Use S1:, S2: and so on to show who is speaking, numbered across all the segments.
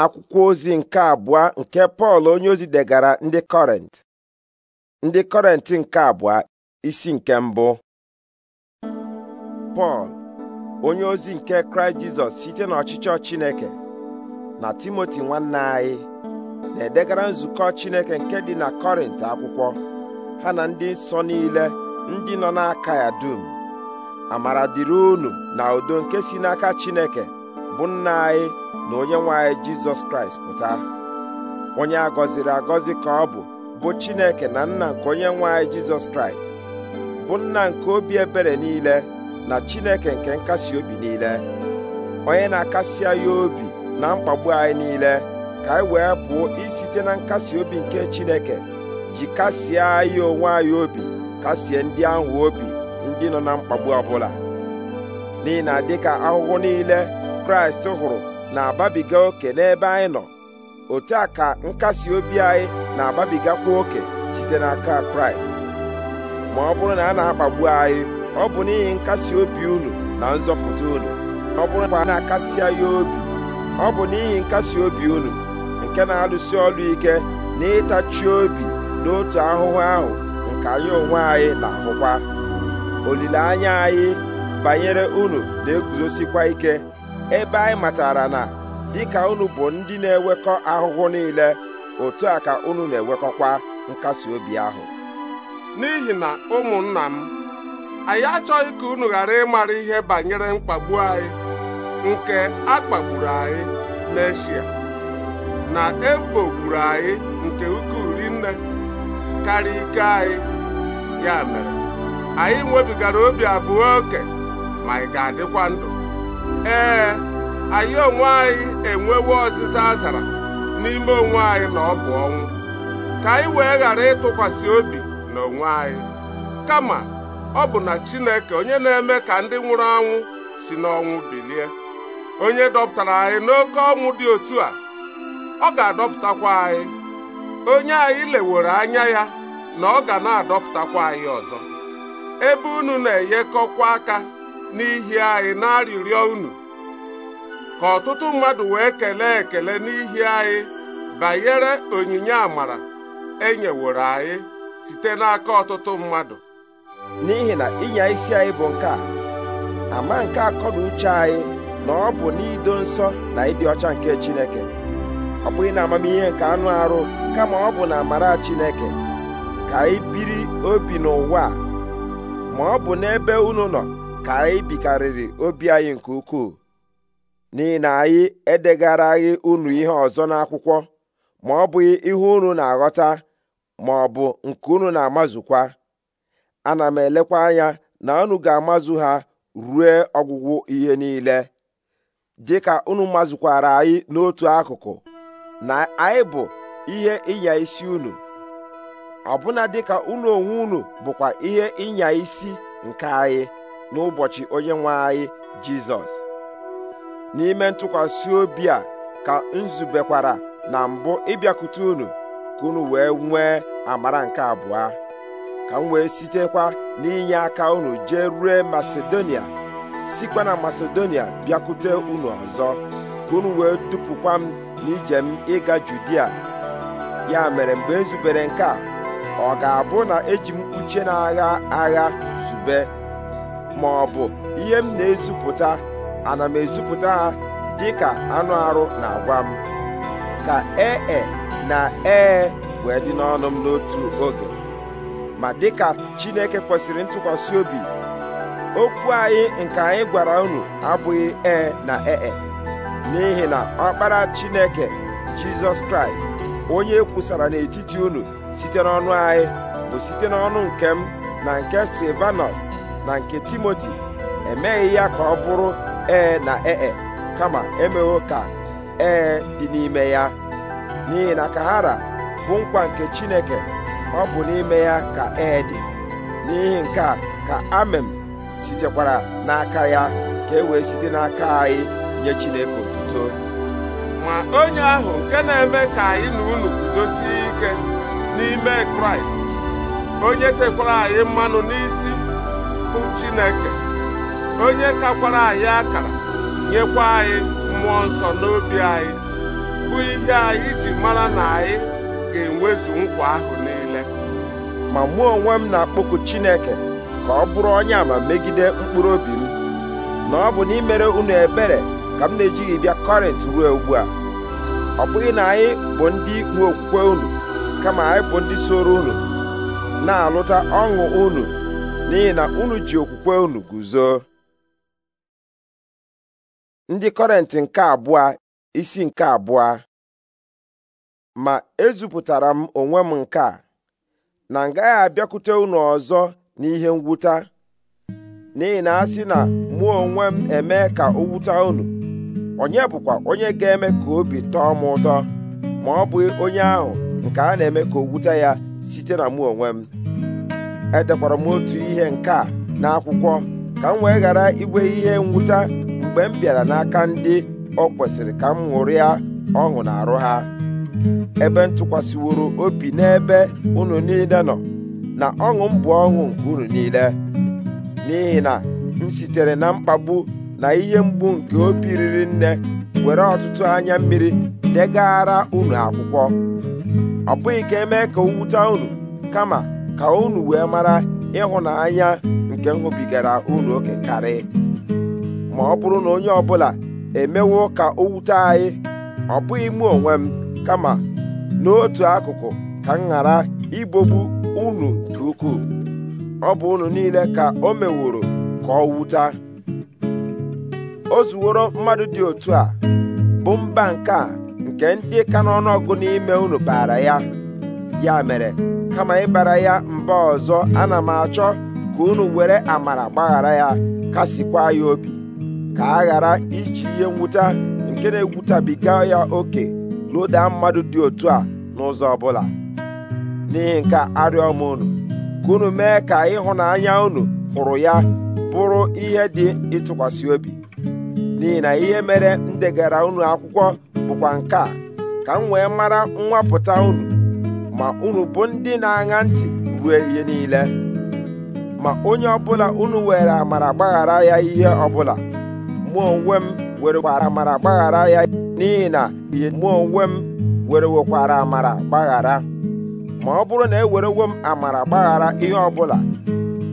S1: akwụkwọ ozi nke abụọ nke Pọl onye ozi degara ndị Kọrent ndị Kọrent nke abụọ isi nke mbụ Pọl onye ozi nke Kraịst Jizọs site n'ọchịchọ Chineke na Timoti nwanne anyị na-edegara nzukọ Chineke nke dị na Kọrint akwụkwọ ha na ndị nsọ niile ndị nọ n'aka ya dum amara dịrị unu na udo nke si n'aka Chineke bụ nna anyị na onye nwanyị jizọs kraịst pụta onye a gọziri agọzi ka ọ bụ bụ chineke na nna nke onye nwanyị jizọs kraịst bụ nna nke obi ebere niile na chineke nke nkasi obi niile onye na-akasi anyị obi na mkpagbu anyị niile ka anyị wee pụọ isite na nkasi obi nke chineke ji kasie anyị onwe anyị obi kasie ndị ahụ obi ndị nọ na mkpagbu ọbụla n'ihi na dịka ahụhụ niile kraịst hụrụ na-ababiga oke n'ebe anyị nọ otu a ka nkasi obi anyị na-ababigakwa oke site n'aka kraịst ma ọ bụrụ na a na-akpagbu anyị ọ bụ n'ihi nkasi obi unu na nzọpụta unu ọ bụrụ na a na-akasi anyị obi ọ bụ n'ihi nkasi obi unu nke na-alụsi ọlụ ike na ịtachi obi n'otu ahụhụ ahụ nke anyị onwe anyị na-ahụkwa olileanya anyị banyere unu na-eguzosikwa ike ebe anyị matara na dịka unu bụ ndị na-ewekọ ahụhụ niile otu a ka unu na enwekọkwa nkasi obi ahụ
S2: n'ihi na ụmụnna m anyị achọghị ka unu ghara ịmara ihe banyere mkpagbu anyị nke a kpagburu anyị n'eshia na ekpogburu anyị nke ukwuu rinne karịa ike anyị ya mere anyị nwebigara obi abụọ oke ma anyị ga-adịkwa ndụ ee anyị onwe anyị enwewo ọzịza azara n'ime onwe anyị na ọ bụ ọnwụ ka anyị wee ghara ịtụkwasị obi na onwe anyị kama ọ bụ na Chineke onye na-eme ka ndị nwụrụ anwụ si n'ọnwụ bilie onye dọpụtara anyị n'oke ọnwụ dị otu a ọ ga-adọpụtakwa anyị onye anyị leworo anya ya na ọ ga na-adọpụtakwa anyị ọzọ ebe unu na-enyekọkwa aka n'ihi anyị na-arịrịọ unu ka ọtụtụ mmadụ wee kelee ekele n'ihi anyị banyere onyinye amara e nyeworo anyị
S1: site n'aka ọtụtụ mmadụ n'ihi na ịnya isi anyị bụ nke a ama nke akọ na uche anyị na ọ bụ n'ido nsọ na ịdị ọcha nke Chineke ọ bụghị na amamihe nke anụ arụ kama ọ bụ na amara Chineke ka anyị biri obi n'ụwa ma ọ bụ n'ebe unu nọ ka anyị bikarịrị obi anyị nke ukwuu n'ihi na anyị edegaraghị unu ihe ọzọ n'akwụkwọ ma ọ bụghị ihe unu na-aghọta ma ọ bụ nke unu na-amazukwa ana m elekwa anya na unu ga-amazu ha rue ọgwụgwụ ihe niile ka unu mazukwara anyị n'otu akụkụ na anyị bụ ihe ịnya isi unu ọbụna ka unu onwe unu bụkwa ihe ịnya isi nke anyị n'ụbọchị onye nwe anyị Jizọs n'ime ntụkwasị obi a ka nzubekwara na mbụ ịbịakwute unu ka unu wee nwee amara nke abụọ ka m wee sitekwa n'inye aka unu jee rue Masedonia sikwa na Masedonia bịakwute unu ọzọ ka unu wee dupụkwa m n'ije m ịga Judia ya mere mgbe nzubere e nke a ọ ga-abụ na eji m uche na agha agha zube ma ọ bụ ihe m na-ezupụta ana m ezupụta ha dịka anụ arụ na-agwa m ka ee e, na ee wee dị n'ọnụ m n'otu oge ma dịka Chineke kwesịrị ntụkwasị obi okwu anyị nke anyị gwara unu abụghị ee na ee e. n'ihi na ọkpara Chineke Jizọs Kraịst onye e kwusara n'etiti unu site n'ọnụ anyị bụ site n'ọnụ nke m na nke Silvanus na nke Timoti emeghị ya ka ọ bụrụ ee na ee e. kama emewo ka ee dị n'ime ya n'ihi na kahara bụ nkwa nke chineke ọ bụ n'ime ya ka ee dị n'ihi nke a ka amem sitekwara n'aka ya ka e wee site n'aka anyị nye chineke otuto ma
S2: onye ahụ nke na-eme ka
S1: anyị na unu guzosie ike n'ime kraịst
S2: onye tekwara anyị mmanụ n'isi bụ chineke onye kakwara anyị akara nyekwa anyị mmụọ nsọ n'obi anyị bụ ihe anyị ji mara na anyị ga-enwezu nkwa ahụ niile
S1: ma mụọ onwe m na-akpọku Chineke ka ọ bụrụ onye ama megide mkpụrụ obi m na ọ bụ n'imere unu ebere ka m na-ejighị bịa Kọrint ruo ugbu a ọ bụghị na anyị bụ ndị nwe okwukwe unu kama anyị bụ ndị soro unu na-alụta ọṅụ unu n'ihi na unu ji okwukwe unu guzo ndị kọrentị nke abụọ isi nke abụọ ma ezupụtara m onwe m nke a na m gaghị abịakwute unu ọzọ n'ihe mwụta n'ihi na a sị na mụ onwe m eme ka o wuta unu onye bụkwa onye ga-eme ka obi tọọ m ụtọ ma ọ bụ onye ahụ nke a na-eme ka o ya site na mụ onwe m edekwara m otu ihe nke a n'akwụkwọ ka m wee ghara igwe ihe mwụta mgbe m bịara n'aka ndị ọ kwesịrị ka m ṅụrịa ọṅụ na-arụ ha ebe ntụkwasịworo obi n'ebe unu niile nọ na ọṅụ m bụ ọṅụ nke unu niile n'ihi na m sitere na mkpagbu na ihe mgbu nke obi riri nne were ọtụtụ anya mmiri degara unu akwụkwọ ọ bụghị ka emee ka owute unu kama ka unu wee mara ịhụnanya nke m unu oke karị ma ọ bụrụ na onye ọbụla emewo ka o wute anyị ọ bụghị mụ onwe m kama n'otu akụkụ ka m ghara ibogbu unu nke ukwuu ọ bụ unu niile ka o meworo ka ọ o zuworo mmadụ dị otu a bụ mba nke a nke ndị ka n'ọnụọgụ n'ime unu baara ya ya mere kama ịbara ya mba ọzọ ana m achọ ka unu were amara gbaghara ya kasịkwa ya obi ka a ghara iji ihe nwụta nke na-egwutabiga ya oke loda mmadụ dị otu a n'ụzọ ọbụla n'ihi nke arịọ m unu ka unu mee ka ịhụnanya unu hụrụ ya bụrụ ihe dị ịtụkwasị obi n'ihi na ihe mere m degara unu akwụkwọ bụkwa nke a ka m wee mara nwapụta unu ma unu bụ ndị na-aṅa ntị ruo ihe niile ma onye ọbụla unu were amara gbaghara ya ihe ọbụla mụ onwe m were kwara amara gbaghara ya n'ihi na ihe mụ onwe m were wekwara amara gbaghara ma ọ bụrụ na ewerewo m amara gbaghara ihe ọ bụla,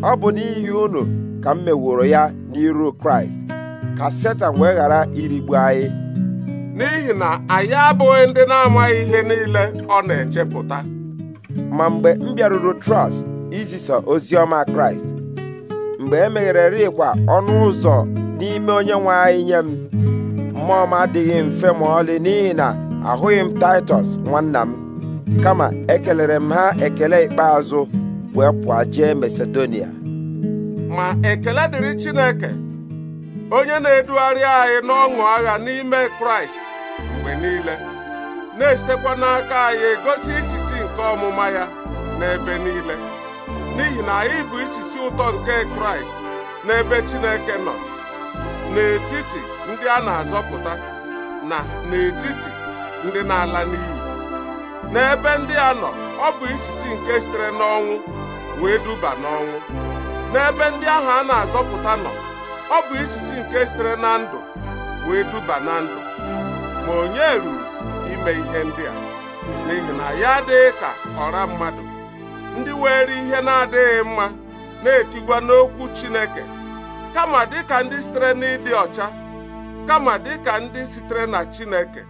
S1: ọ bụ n'ihi unu ka m meworo ya n'iru kraịst ka setan wee ghara irigbu anyị n'ihi na anyị abụghị ndị na-amaghị ihe niile ọ na-echepụta ma mgbe m bịaruru trọst izisa ozi ọma kraịst mgbe e meghererikwa ọnụ ụzọ n'ime onye nwe anyị nye m mmụọ m adịghị mfe ma ọlị n'ihi na ahụghị m taịtọs nwanna m kama ekelere m ha ekele ikpeazụ wee pụọ jee masedonia
S2: ma ekele dịrị chineke onye na-edugharị anyị n'ọṅụ agha n'ime kraịst mgbe niile na-esitekwa n'aka anyị egosi isisi nke ọmụma ya n'ebe niile n'ihi na anyị bụ isisi ụtọ nke kraịst n'ebe chineke nọ n'etiti ndị a na-azọpụta na n'etiti ndị na-ala n'iyi n'ebe ndị a nọ ọ bụ isisi nke sitere n'ọnwụ wee duba n'ọnwụ n'ebe ndị ahụ a na-azọpụta nọ ọ bụ isisi nke sitere na ndụ wee duba na ndụ ma onye ruru ime ihe ndị a n'ihi na ya adịghị ka ọra mmadụ ndị were ihe na-adịghị mma na-etigwa n'okwu Chineke kama dịka ndị sitere n'ịdị ọcha kama dịka ndị sitere na Chineke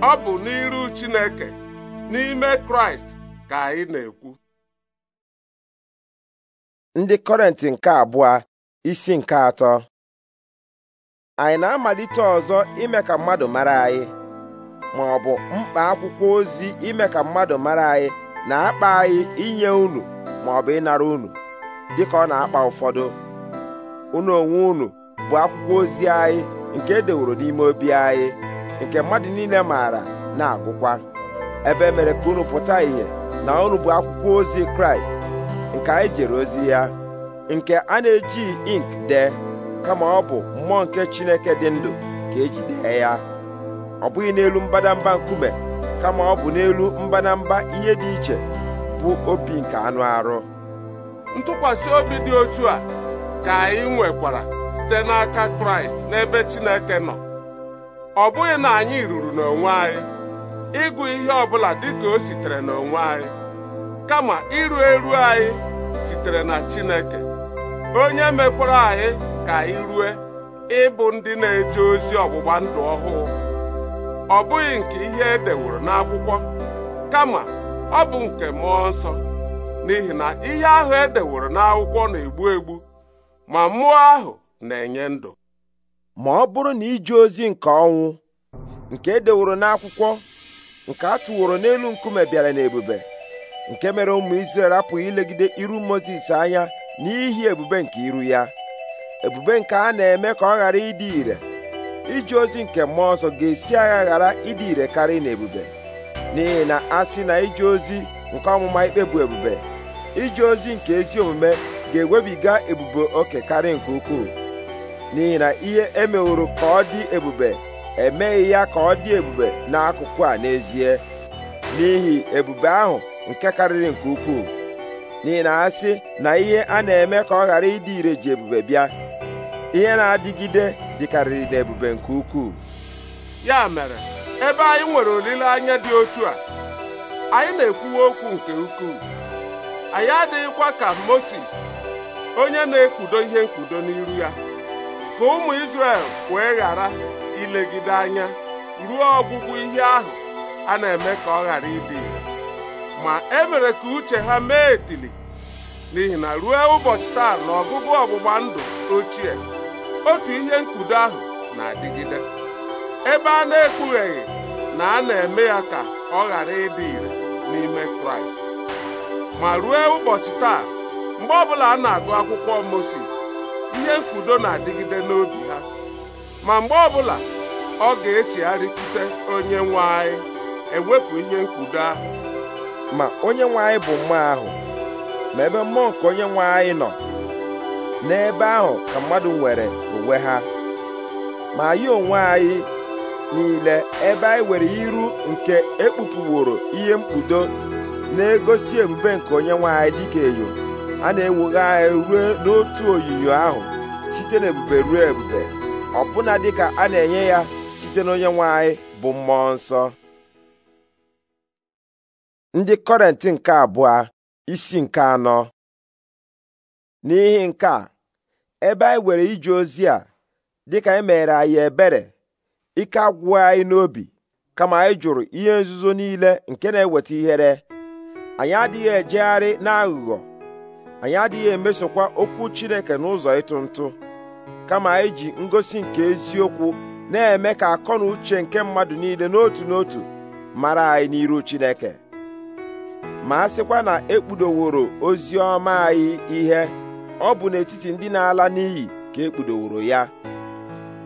S2: ọ bụ n'iru Chineke n'ime Kraịst ka anyị na-ekwu
S1: ndị Kọrentị nke abụọ isi nke atọ anyị na-amalite ọzọ ime ka mmadụ mara anyị ma ọ bụ mkpa akwụkwọ ozi ime ka mmadụ mara anyị na-akpa anyị inye unu ma ịnara unu dịka ọ na-akpa ụfọdụ unu onwe unu bụ akwụkwọ ozi anyị nke e deworo n'ime obi anyị nke mmadụ niile maara na-agụkwa ebe e mere ka unu pụta ìhè na unu bụ akwụkwọ ozi kraịst nke anyị jere ozi ya nke a na eji ink dee kama ọ bụ mmụọ nke chineke dị ndụ ka eji dee ya ọ bụghị n'elu mbadamba nkume kama ọ bụ n'elu mbadamba ihe dị iche bụ obi nke anụ arụ
S2: ntụkwasị obi dị otu a ka anyị nwekwara site n'aka kraịst n'ebe chineke nọ ọ bụghị na anyị ruru n'onwe anyị ịgụ ihe ọbụla dịka o sitere n'onwe anyị kama iru eru anyị sitere na chineke onye mekwara anyị ka anyị rue ịbụ ndị na-eje ozi ọgbụgba ndụ ọhụụ ọ bụghị nke ihe e deworo n'akwụkwọ kama ọ bụ nke mmụọ nsọ n'ihi na ihe ahụ e deworo n'akwụkwọ na-egbu egbu ma mmụọ ahụ na-enye
S1: ndụ ma ọ bụrụ na ije ozi nke ọnwụ nke edeworo n'akwụkwọ nke a tụworo n'elu nkume bịara n'ebube nke mere ụmụ Izrel apụghị ilegide iru Mozis anya n'ihi ebube nke iru ya ebube nke a na-eme ka ọ ghara ịdị ire ije ozi nke mmụọ ọzọ ga-esi agha ghara ịdị ire karị n'ebube n'ihi na a sị na ije ozi nke ọmụma ikpe bụ ebube ije ozi nke ezi omume ga-ewebiga ebube oke karịa nke ukwuu n'ihi na ihe emeworo ka ọ dị ebube emeghị ya ka ọ dị ebube n'akụkụ a n'ezie n'ihi ebube ahụ nke karịrị nke ukwuu n'ihi na ha sị na ihe a na-eme ka ọ ghara ịdị ire ji ebube bịa ihe na-adịgide dịkarịrị n'ebube nke ukwuu
S2: ya mere ebe anyị nwere olileanya dị otu a anyị na-ekwuwa okwu nke ukwuu anyị adịghịkwa ka Mozis onye na-ekpudo ihe mkpudo n'iru ya ka ụmụ isrel wee ghara ilegide anya ruo ọgwụgwụ ihe ahụ a na-eme ka ọ ghara ịdị ma e mere ka uche ha mee etili n'ihi na ruo ụbọchị taa na ọgụgụ ọgbụgba ndụ ochie otu ihe mkpudo ahụ na-adịgide ebe a na-ekpugheghị na a na-eme ya ka ọ ghara ịdị ire n'ime Kraịst ma ruo ụbọchị taa mgbe ọbụla a na-agụ akwụkwọ Moses ihe nkwudo na-adịgide n'obi ha ma mgbe ọbụla ọ ga-echegharịkwute onye nwe anyị ewepụ ihe nkwudo ahụ
S1: ma onye nwe anyị bụ mma ahụ ma ebe mmụọ nke onye nwe anyị nọ n'ebe ahụ ka mmadụ nwere onwe ha ma anyị onwe anyị niile ebe anyị nwere iru nke ekpupuworo ihe mkpudo na-egosi ebube nke onye nwe anyị dịka enyo a na-ewughe anyị ruo n'otu oyiyo ahụ site ebube ruo ebube ọbụna dịka a na-enye ya site n'onye nwe anyị bụ mmụọ nsọ ndị kọrent nke abụọ isi nke anọ n'ihi nke a ebe anyị were ije ozi a dịka e meghere anyị ebere ike agwụghị anyị n'obi kama anyị jụrụ ihe nzuzo niile nke na-eweta ihere anyị adịghị ejegharị n'aghụghọ anyị adịghị emesokwa okwu Chineke n'ụzọ ịtụ ntụ kama anyị ji ngosi nke eziokwu na-eme ka akọ na uche nke mmadụ niile n'otu n'otu mara anyị n'iru Chineke ma a sịkwa na ekpudoworo ozi ọma anyị ihe ọ bụ n'etiti ndị na-ala n'iyi ka ekpudoworo ya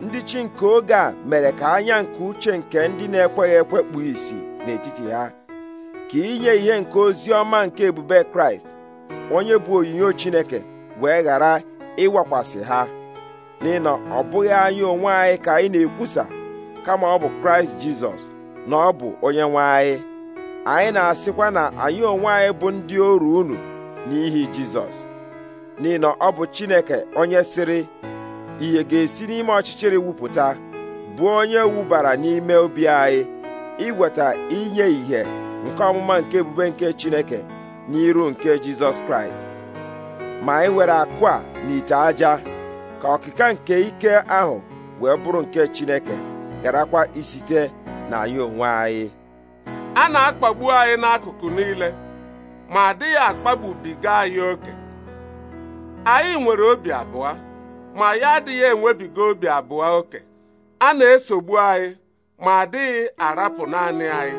S1: ndị chi nke oge a mere ka anya nke uche nke ndị na-ekweghị ekwe kpuo isi n'etiti ha ka inye ihe nke ozi ọma nke ebube Kraịst onye bụ onyinyo Chineke wee ghara ịwakwasị ha n'ihi ọ bụghị anyị onwe anyị ka anyị na-ekwusa kama ọ bụ Kraịst Jizọs na ọ bụ onye nwe anyị anyị na-asịkwa na anyị onwe anyị bụ ndị oru unu n'ihi Jizọs n'ihi ọ bụ Chineke onye sịrị ihe ga-esi n'ime ọchịchịrị wupụta bụ onye wubara n'ime obi anyị iweta inye ìhè nke ọmụma nke ebube nke Chineke n'iru nke jizọs kraịst ma anyị e nwere akụ a n'ite aja ka ọkịka nke ike ahụ wee bụrụ nke chineke garakwa isite na anyị onwe anyị
S2: a na-akpagbu anyị n'akụkụ niile ma adịghị akpagbubiga anyị oke anyị nwere obi abụọ ma ya adịghị enwebiga obi abụọ oke a na-esogbu anyị ma adịghị arapụ naanị anyị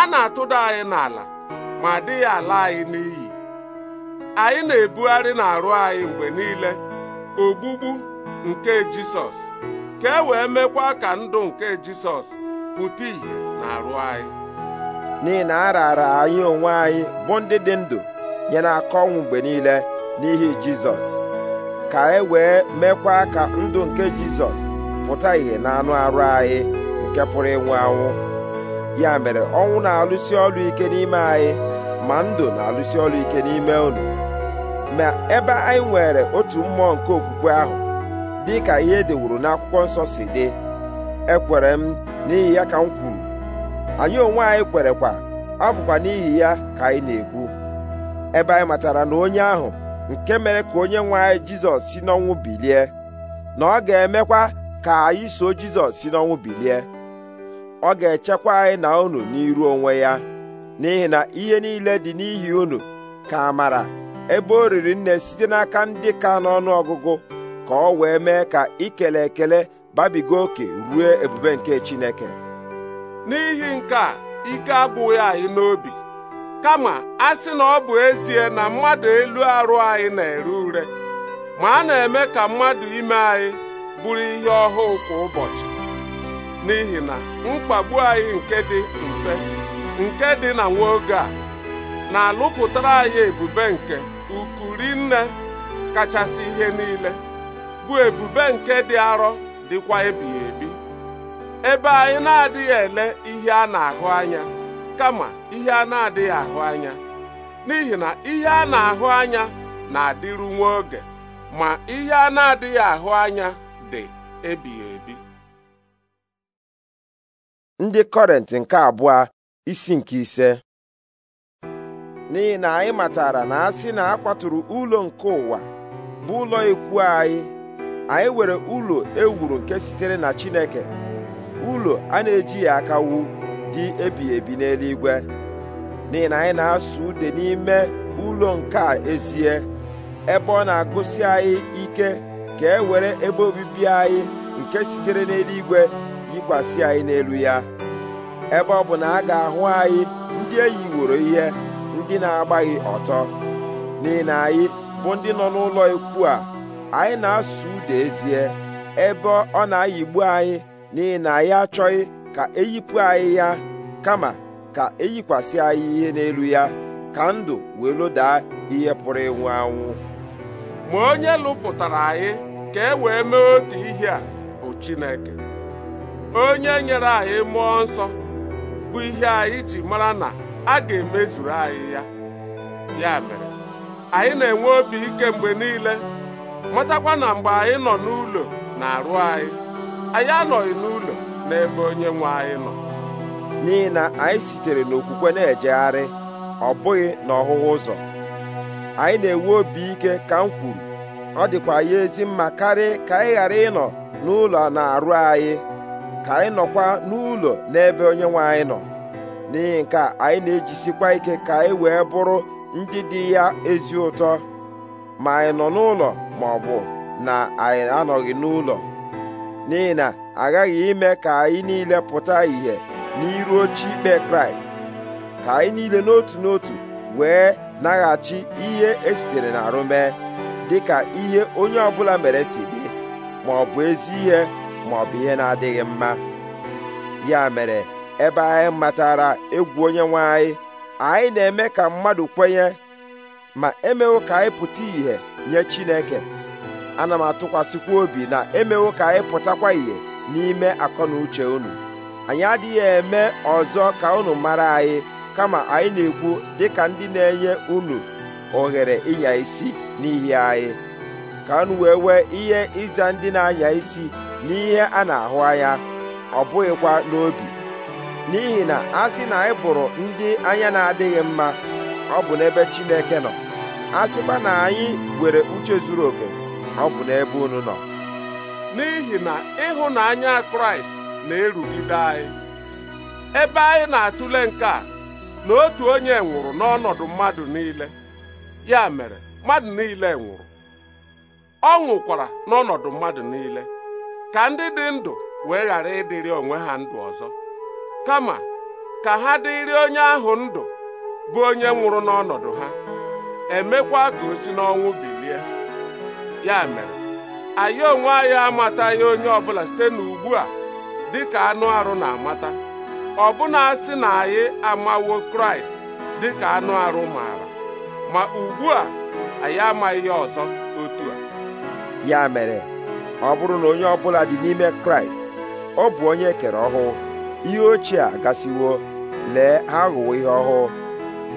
S2: a na-atụda anyị n'ala ma dịghị ala anyị n'iyi anyị na-ebugharị n'arụ anyị mgbe niile ogbugbu nke Jisọs ka e wee mekwa ka ndụ nke Jisọs pụta ìhè n'arụ anyị
S1: n'ihi na a raara anyị onwe anyị bụ ndị dị ndụ nye n'aka ọnwụ mgbe niile n'ihi Jizọs ka e wee mekwa ka ndụ nke Jizọs pụta ìhè n'anụ arụ anyị nke pụrụ ịnwụ anwụ ya mere ọnwụ na-alụsi ọrụ ike n'ime anyị ma ndụ na-alụsi ọrụ ike n'ime unu ma ebe anyị nwere otu mmụọ nke okwukwe ahụ dị ka ihe dewuru n'akwụkwọ nsọ si dị ekwere m n'ihi ya ka m kwuru anyị onwe anyị kwerekwa ọ bụkwa n'ihi ya ka anyị na-ekwu ebe anyị matara na onye ahụ nke mere ka onye nwe anyị jizọs si n'ọnwụ bilie na ọ ga-emekwa ka anyị so jizọs si n'ọnwụ bilie ọ ga-echekwa anyị na unu n'iru onwe ya n'ihi na ihe niile dị n'ihi unu ka mara ebe o riri nne site n'aka ndị ka n'ọnụ ọgụgụ ka ọ wee mee ka ikele ekele babiga oke ruo ebube nke Chineke
S2: n'ihi nke a ike agbụghị anyị n'obi kama a sị na ọ bụ ezie na mmadụ elu arụ anyị na-ere ure ma a na-eme ka mmadụ ime anyị bụrụ ihe ọhụụ kwa ụbọchị n'ihi na mkpagbu anyị nke dị mfe nke dị na nwa oge a na-alụpụtara anyị ebube nke ukuri nne kachasị ihe niile bụ ebube nke dị arọ dịkwa ebighị ebi ebe anyị na-adịghị ele ihe a na-ahụ anya kama ihe a na-adịghị ahụ anya n'ihi na ihe a na-ahụ anya na-adịru nwa oge ma ihe a na-adịghị ahụ anya
S1: dị ebighị ebi ndị kọrent nke abụọ isi nke ise n'ihi na anyị matara na asị na a kwaturu ụlọ nke ụwa bụ ụlọ ikwu anyị anyị were ụlọ ewuru nke sitere na Chineke ụlọ a na-ejighị aka wu dị ebighị ebi n'eluigwe n'ihi na anyị na-asụ ude n'ime ụlọ nke a ezie ebe ọ na-agụsi anyị ike ka e were ebe obibi anyị nke sitere n'eluigwe yikwasị anyị n'elu ya ebe ọ bụ na a ga-ahụ anyị ndị eyiworo ihe ndị na-agbaghị ọtọ n'ihi na anyị bụ ndị nọ n'ụlọ ikwu a anyị na-asụ Ude ezie ebe ọ na-ayigbu anyị n'ihi na anyị achọghị ka eyipụ anyị ya kama ka eyikwasị anyị ihe n'elu ya ka ndụ wee lodaa ihe pụrụ ịnwụ anwụ
S2: ma onye lụpụtara anyị ka e wee mee otu ihe a bụ Chineke onye nyere anyị mmụọ nsọ bụ ihe anyị ji mara na a ga-emezuru anyị ya ya mere anyị na-enwe obi ike mgbe niile matakwa na mgbe anyị nọ n'ụlọ
S1: na-arụ anyị anyị anọghị n'ụlọ n'ebe onye nwe anyị nọ n'ihi na anyị sitere n'okwukwe na-ejegharị ọ bụghị n'ọhụhụ ụzọ anyị na-enwe obi ike ka m kwuru ọ dịkwa ya ezi mma karị ka anyị ghara ịnọ n'ụlọ na-arụ anyị ka anyị nọkwa n'ụlọ n'ebe onye nwe anyị nọ n'ihi nke anyị na-ejisikwa ike ka anyị wee bụrụ ndị dị ya ezi ụtọ ma anyị nọ n'ụlọ ma ọ bụ na anyị anọghị n'ụlọ n'ihi na aghaghị ime ka anyị niile pụta ìhè n'iru oche ikpe kraịst ka anyị niile n'otu n'otu wee naghachi ihe esitere n'arụ mee ka ihe onye ọbụla mere si dị ma ọ bụ ezi ihe bụ ihe na-adịghị mma ya mere ebe anyị matara egwu onye nwe anyị anyị na-eme ka mmadụ kwenye ma emewo ka anyị pụta ìhè nye Chineke ana m atụkwasịkwa obi na emewo ka anyị pụtakwa ìhè n'ime akọnuche unu anyị adịghị eme ọzọ ka unu mara anyị kama anyị na-ekwu dịka ndị na-enye unu ohere ịnya isi n'ihi anyị ka unu wee wee ihe ịza ndị na-anya isi n'ihe a na-ahụ anya ọ bụghịkwa n'obi n'ihi na a sị na anyị bụrụ ndị anya na-adịghị mma ọ bụ n'ebe Chineke nọ a sịkwa na anyị nwere uche zuru oke ọ bụ n'ebe unu nọ n'ihi na ịhụnanya Kraịst na-erugide anyị ebe
S2: anyị na-atụle nke a na otu onye nwụrụ n'ọnọdụ mmadụ niile ya mere mmadụ niile nwụrụ ọ nwụkwara n'ọnọdụ mmadụ niile ka ndị dị ndụ wee ghara ịdịrị onwe ha ndụ ọzọ kama ka ha dịrị onye ahụ ndụ bụ onye nwụrụ n'ọnọdụ ha emekwa ka o si n'ọnwụ bilie ya mere anyị onwe anyị amataghị onye ọbụla site n'ugbu a dị ka anụ arụ na-amata ọbụna asị na anyị amawo kraịst dị ka anụ arụ maara ma ugbu a anyị amaghị ya ọzọ otu a
S1: ya mere ọ bụrụ na onye ọbụla dị n'ime kraịst ọ bụ onye e kere ọhụụ ihe ochie a gasịwo lee ha aghụwo ihe ọhụụ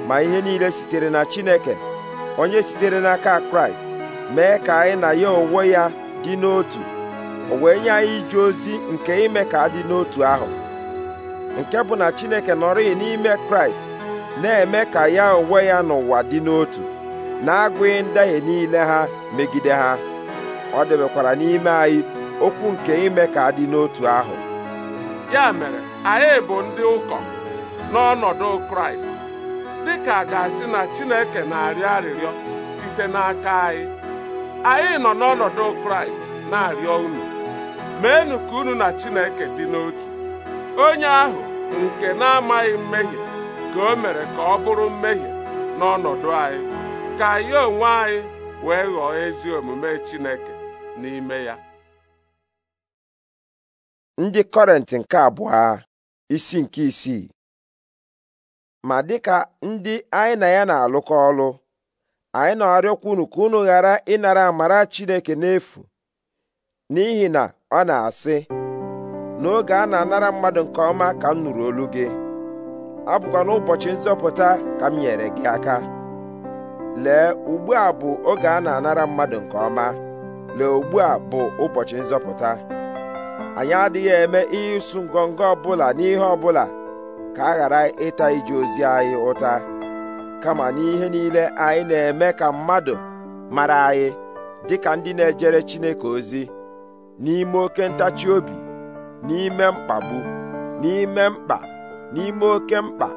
S1: ma ihe niile sitere na chineke onye sitere n'aka kraịst mee ka anyị na ya onwe ya dị n'otu o wee nye anyị ije ozi nke ime ka adị n'otu ahụ nke bụ na chineke nọrịghị n'ime kraịst na-eme ka ya onwe ya n'ụwa dị n'otu na-agụghị ndahie niile ha megide ha ọ debekwara n'ime anyị okwu nke ime ka dị n'otu ahụ
S2: ya mere anyị bụ ndị ụkọ n'ọnọdụ kraịst dịka a ga-asị na chineke na-arịọ arịrịọ site n'aka anyị anyị nọ n'ọnọdụ kraịst na-arịọ unu meenụ ka unu na chineke dị n'otu onye ahụ nke na-amaghị mmehie ka o mere ka ọ bụrụ mmehie n'ọnọdụ anyị ka anyị onwe anyị wee ghọọ ezi omume chineke n'ime ya
S1: ndị kọrent nke abụọ isi nke isii ma dịka ndị anyị na ya na-alụkọ ọlụ anyị na-arịọkwa unu ka unu ghara ịnara amara Chineke n'efu n'ihi na ọ na-asị n'oge a na-anara mmadụ nke ọma ka m nụrụ olu gị abụkwa n'ụbọchị nzọpụta ka m nyere gị aka lee ugbu a bụ oge a na-anara mmadụ nke ọma lee ugbu a bụ ụbọchị nzọpụta anyị adịghị eme ịsụ ngọngọ ọbụla n'ihe ọbụla ka a ghara ịta ije ozi anyị ụta kama n'ihe niile anyị na-eme ka mmadụ mara anyị dịka ndị na-ejere Chineke ozi n'ime oke ntachi obi n'ime mkpagbu n'ime mkpa n'ime oke mkpa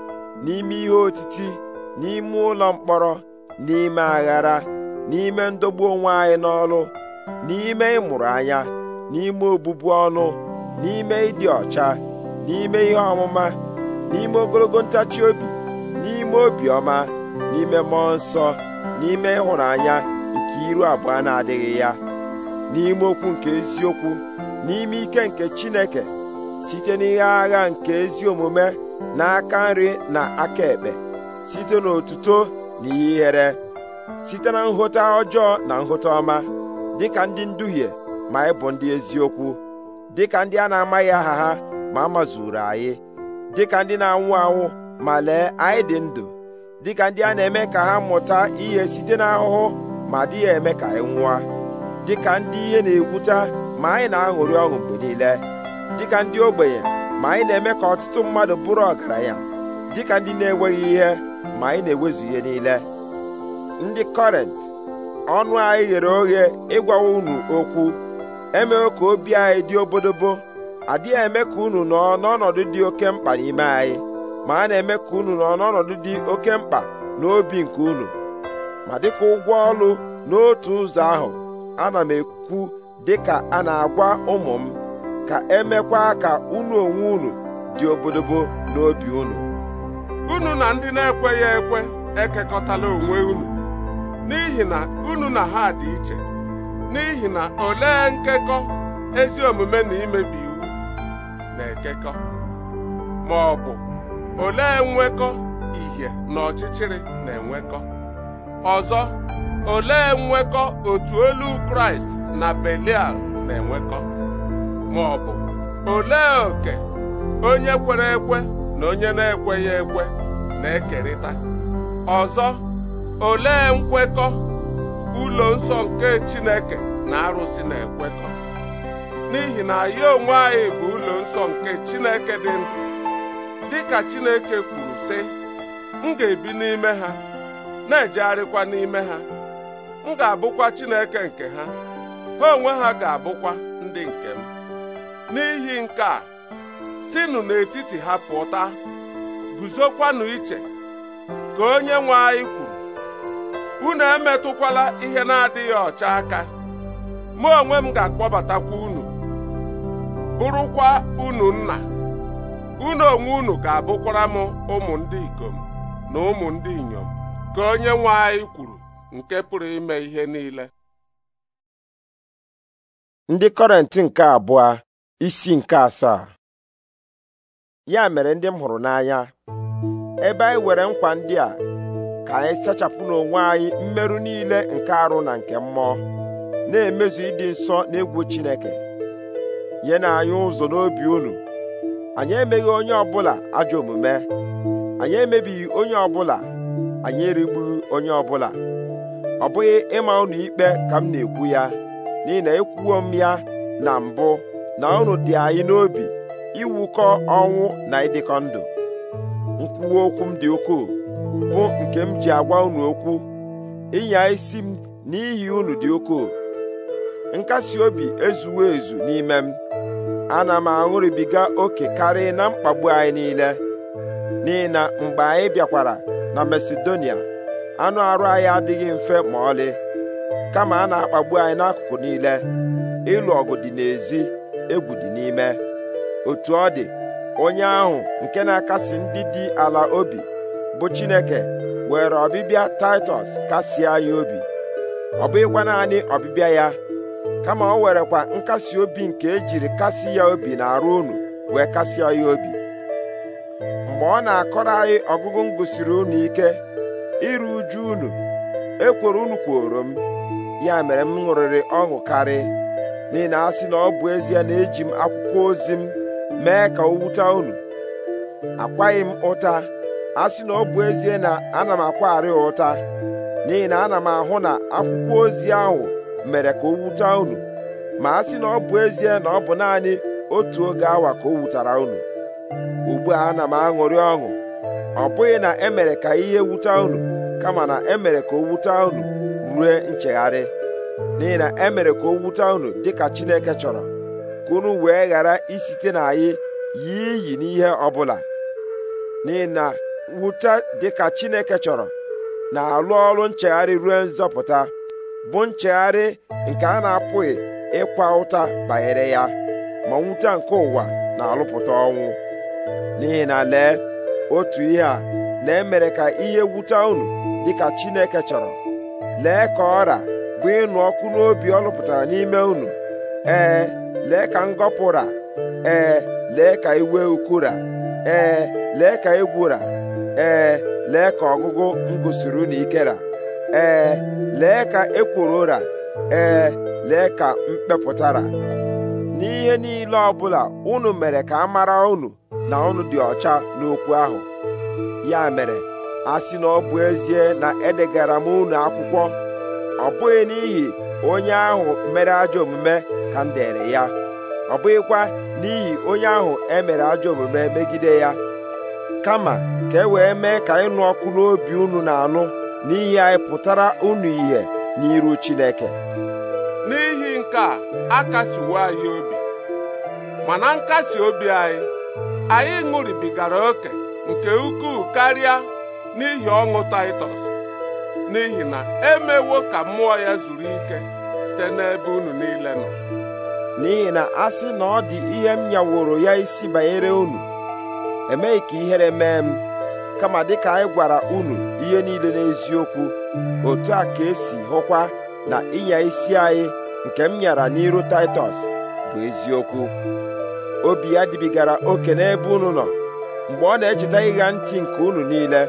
S1: n'ime ihe otiti n'ime ụlọ mkpọrọ n'ime aghara n'ime ndogbu onwe anyị n'ọlụ n'ime ịmụrụ anya n'ime obụbu ọnụ n'ime ịdị ọcha n'ime ihe ọmụma n'ime ogologo ntachi obi n'ime obiọma n'ime mmụọ nsọ n'ime ịhụnanya nke iru abụọ na-adịghị ya n'ime okwu nke eziokwu n'ime ike nke Chineke site n'ihe agha nke ezi omume aka nri na aka ekpe site n'otuto na ihere site na nghọta ọjọọ na nghọta ọma dịka ndị nduhie ma anyị bụ ndị eziokwu dịka ndị a na-amaghị aha ha ma amazuru anyị dịka ndị na-anwụ anwụ ma lee anyị dị ndụ dịka ndị a na-eme ka ha mụta ihe site n'ahụhụ ma dịghị eme ka anyị nwụọ dịka ndị ihe na-egwuta ma anyị na-aṅụrị ọṅụ mgbe niile dịka ndị ogbenye ma anyị na-eme ka ọtụtụ mmadụ bụrụ ọgaranya dịka ndị na-enweghị ihe ma anyị na-ewezu ihe niile ndị kọrent ọnụ anyị ghere oghe ịgwawa unu okwu emewo ka obi anyị dị obodobo adịghị eme ka unu nọ n'ọnọdụ dị oke mkpa n'ime anyị ma a na-eme ka unu nọ n'ọnọdụ dị oke mkpa n'obi nke unu ma dịka ụgwọ ọlụ n'otu ụzọ ahụ ana m ekwu dịka a na-agwa ụmụ m ka emekwa ka unu onwe unu dị obodobo n'obi unu
S2: unu na ndị na-ekweghị ekwe ekekọtala onwe unu n'ihi na unu na ha dị iche n'ihi na olee nkekọ ezi omume na imebi iwu na-ekekọ ma ọ bụ olee nwekọ ihe na ọchịchịrị na-enwekọ ọzọ olee nwekọ otu olu kraịst na belial na-enwekọ ma ọ bụ olee oke onye kwere ekwe na onye na-ekweghị ekwe na-ekerịta ọzọ olee nkwekọ ụlọ nsọ nke Chineke na arụsị na-ekwekọ n'ihi na ya onwe anyị bụ ụlọ nsọ nke Chineke dị ndụ ka Chineke kwuru sị m ga-ebi n'ime ha na-ejegharịkwa n'ime ha m ga-abụkwa Chineke nke ha ha onwe ha ga-abụkwa ndị nke m n'ihi nke a sinụ n'etiti ha pụta guzokwanụ iche ka onye nwe anyị kwuru unu emetụkwala ihe na-adịghị ọcha aka mụ onwe m ga-akpọbatakwa unu bụrụkwa unu nna unu onwe unu ga-abụkwara m ụmụ ndị ikom
S1: na ụmụ ndị inyom
S2: ka onye nwe anyị kwuru nke pụrụ ime ihe niile
S1: ndị kọrentị nke abụọ isi nke asaa ya mere ndị m hụrụ n'anya ebe anyị were nkwa ndị a ka anyị sachapụ n'onwe anyị mmerụ niile nke arụ na nke mmụọ na-emezu ịdị nsọ na egwu Chineke nye na anyị ụzọ n'obi unu anyị emeghị onye ọbụla ajọ omume anyị emebighị onye ọbụla anyị erigbughị onye ọbụla ọ bụghị ịma unu ikpe ka m na-ekwu ya n'ihi na ekwuwo m ya na mbụ na unu dị anyị n'obi iwukọ ọnwụ na ịdịkọ ndụ nkwuwa okwu m dị ukwuu bụ nke m ji agwa unu okwu ịnya isi m n'ihi unu dị ukwuu nkasi obi ezuwo ezu n'ime m ana m aṅụrịbiga oke karịa na mkpagbu anyị niile n'ihi na mgbe anyị bịakwara na Masedonia anụ arụ anyị adịghị mfe ma ọlị kama a na-akpagbu anyị n'akụkụ niile ịlụ ọgụ dị n'ezi egwu dị n'ime otu ọ dị onye ahụ nke na-akasi ndị dị ala obi bụ Chineke were ọbịbịa Taịtọs kasie ya obi ọ bụghịkwa naanị ọbịbịa ya kama o werekwa nkasi obi nke ejiri kasi ya obi na arụ unu wee kasịa ya obi mgbe ọ na-akọrọ anyị ọgụgụ m gụsiri unu ike iru uju unu ekworo unu kworo m ya mere m ṅụrịrị ọṅụ karị n'ihi na asị na ọ bụ ezie na eji m akwụkwọ ozi m mee ka o wute unu akwaghị m ụta a sị na ọ bụ ezie na ana m akwagharị ha ụta n'ihi na ana m ahụ na akwụkwọ ozi ahụ mere ka o wuta unu ma a sị na ọ bụ ezie na ọ bụ naanị otu oge awa ka o wutara unu ugbu a ana m aṅụrị ọṅụ ọ bụghị na emere ka ihe wuta unu kama na emere ka o wuta unu rue nchegharị n'ihi na emere ka o wuta unu dịka Chineke chọrọ ka unu wee ghara isite na anyị yie iyi n'ihe ọ bụla n'ihi na wụta dịka Chineke chọrọ na-alụ ọrụ nchegharị ruo nzọpụta bụ nchegharị nke a na-apụghị ịkwa ụta banyere ya ma nwute nke ụwa na-alụpụta ọnwụ n'ihi na lee otu ihe a lee mere ka ihe wute unu dịka Chineke chọrọ lee ka ọra bụ ịnụ ọkụ n'obi ọ lụpụtara n'ime unu ee lee ka ngọpụra ee lee ka iwe ukura ee lee ka egwura ee lee ka ọgụgụ m gụsiri unu ikera ee lee ka ekworo ụra ee lee ka m kpepụtara n'ihe niile ọbụla unu mere ka a mara unu na unu dị ọcha n'okwu ahụ ya mere a sị na ọ bụ ezie na edegara m unu akwụkwọ ọ bụghị n'ihi onye ahụ mere ajọ omume ka m dere ya ọ bụghịkwa n'ihi onye ahụ emere ajọ omume megide ya kama ka e wee mee ka ịnụ ọkụ n'obi unu na-anụ n'ihi anyị pụtara unu ihe n'iru Chineke
S2: n'ihi nke a akasiwo anyị obi mana nkasi obi anyị anyị ṅụribigara oke nke ukwuu karịa n'ihi ọṅụ Taịtọs n'ihi na emewo ka mmụọ ya zuru ike site n'ebe unu niile nọ
S1: n'ihi na a na ọ dị ihe m nyaworo ya isi banyere unu emeghị ka ihere mee m kama dịka anyị gwara unu ihe niile n'eziokwu otu a ka esi hụkwa na ịnya isi anyị nke m nyara n'iru Taịtọs bụ eziokwu obi ya dịbigara oke n'ebe unu nọ mgbe ọ na-echeta ịgha ntị nke unu niile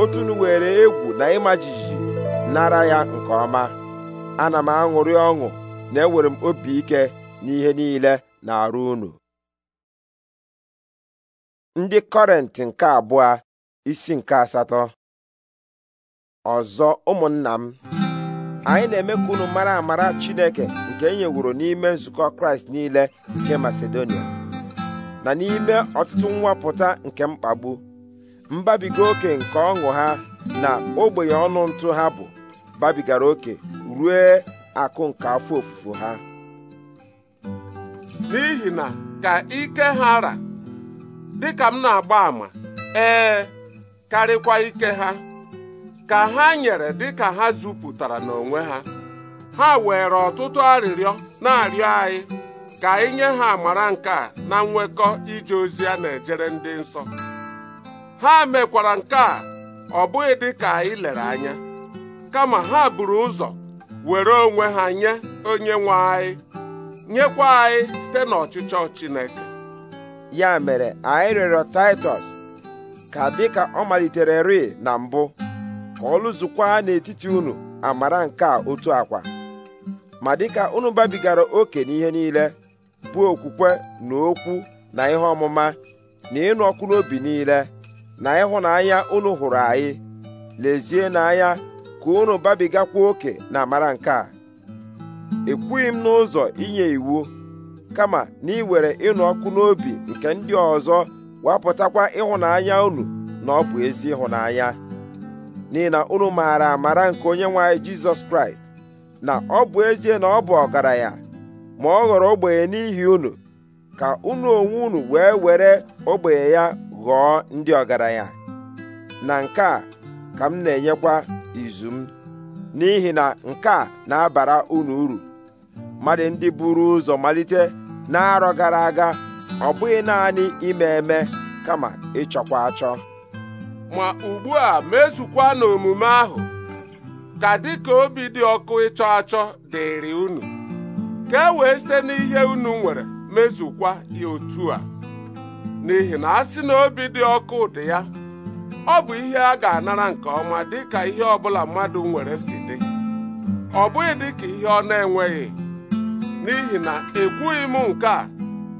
S1: otu unu were egwu na ịma jijiji nara ya nke ọma ana m aṅụrị ọṅụ na ewere m obi ike n'ihe niile na-arụ unu ndị kọrent nke abụọ isi nke asatọ ọzọ ụmụnna m anyị na-eme ka unu mara amara Chineke nke e n'ime nzukọ Kraịst niile nke Masedonia na n'ime ọtụtụ nwapụta nke mkpagbu mbabiga oke nke ọṅụ ha na ogbenye ọnụ ntụ ha bụ babigara oke rue akụ nke afọ ofufo ha
S2: n'ihi na ka ike ha ra dịka m na-agba àmà ee karịkwa ike ha ka ha nyere dịka ha zupụtara n'onwe ha ha were ọtụtụ arịrịọ na-arịọ anyị ka anyị nye ha amara nke a na nwekọ ije ozi a na-ejere ndị nsọ ha mekwara nke a ọ bụghị dịka anyị lere anya kama ha buru ụzọ were onwe ha nye onye nwe anyị nyekwa anyị site n'ọchịchọ Chineke
S1: ya mere anyị rịọrọ taịtọs ka dịka ọ malitere ri na mbụ ka ọ lụzukwa n'etiti unu amara nke a otu akwa ma dịka unu babigara oke n'ihe niile bụ okwukwe na okwu na ihe ọmụma na ịnụ ọkụ n'obi niile na ịhụnanya unu hụrụ anyị lezie n'anya ka unu babigakwa oke na amara nke a ekwughị m n'ụzọ inye iwu kama na iwere ịnụ ọkụ n'obi nke ndị ọzọ wapụtakwa ịhụnanya unu na ọ bụ ezi ịhụnanya n'ihi na unu maara amara nke onye nwe anyị jizọs kraịst na ọ bụ ezie na ọ bụ ọgaranya ma ọ ghọrọ ogbenye n'ihi unu ka unu onwe unu wee were ogbenye ya ghọọ ndị ọgaranya na nke a ka m na-enyekwa izu m n'ihi na nke a na-abara unu uru mmadụ ndị buru ụzọ malite n'arọ gara aga ọ bụghị naanị ime eme kama ịchọkwa achọ
S2: ma ugbu a mezukwa n'omume ahụ ka dị ka obi dị ọkụ ịchọ achọ dịrị unu ka e wee site n'ihe unu nwere mezukwa ya otu a n'ihi na a sị na obi dị ọkụ dị ya ọ bụ ihe a ga-anara nke ọma dịka ihe ọbụla mmadụ nwere si dị ọ bụghị dịka ihe ọ na-enweghị n'ihi na ekwughị m nke a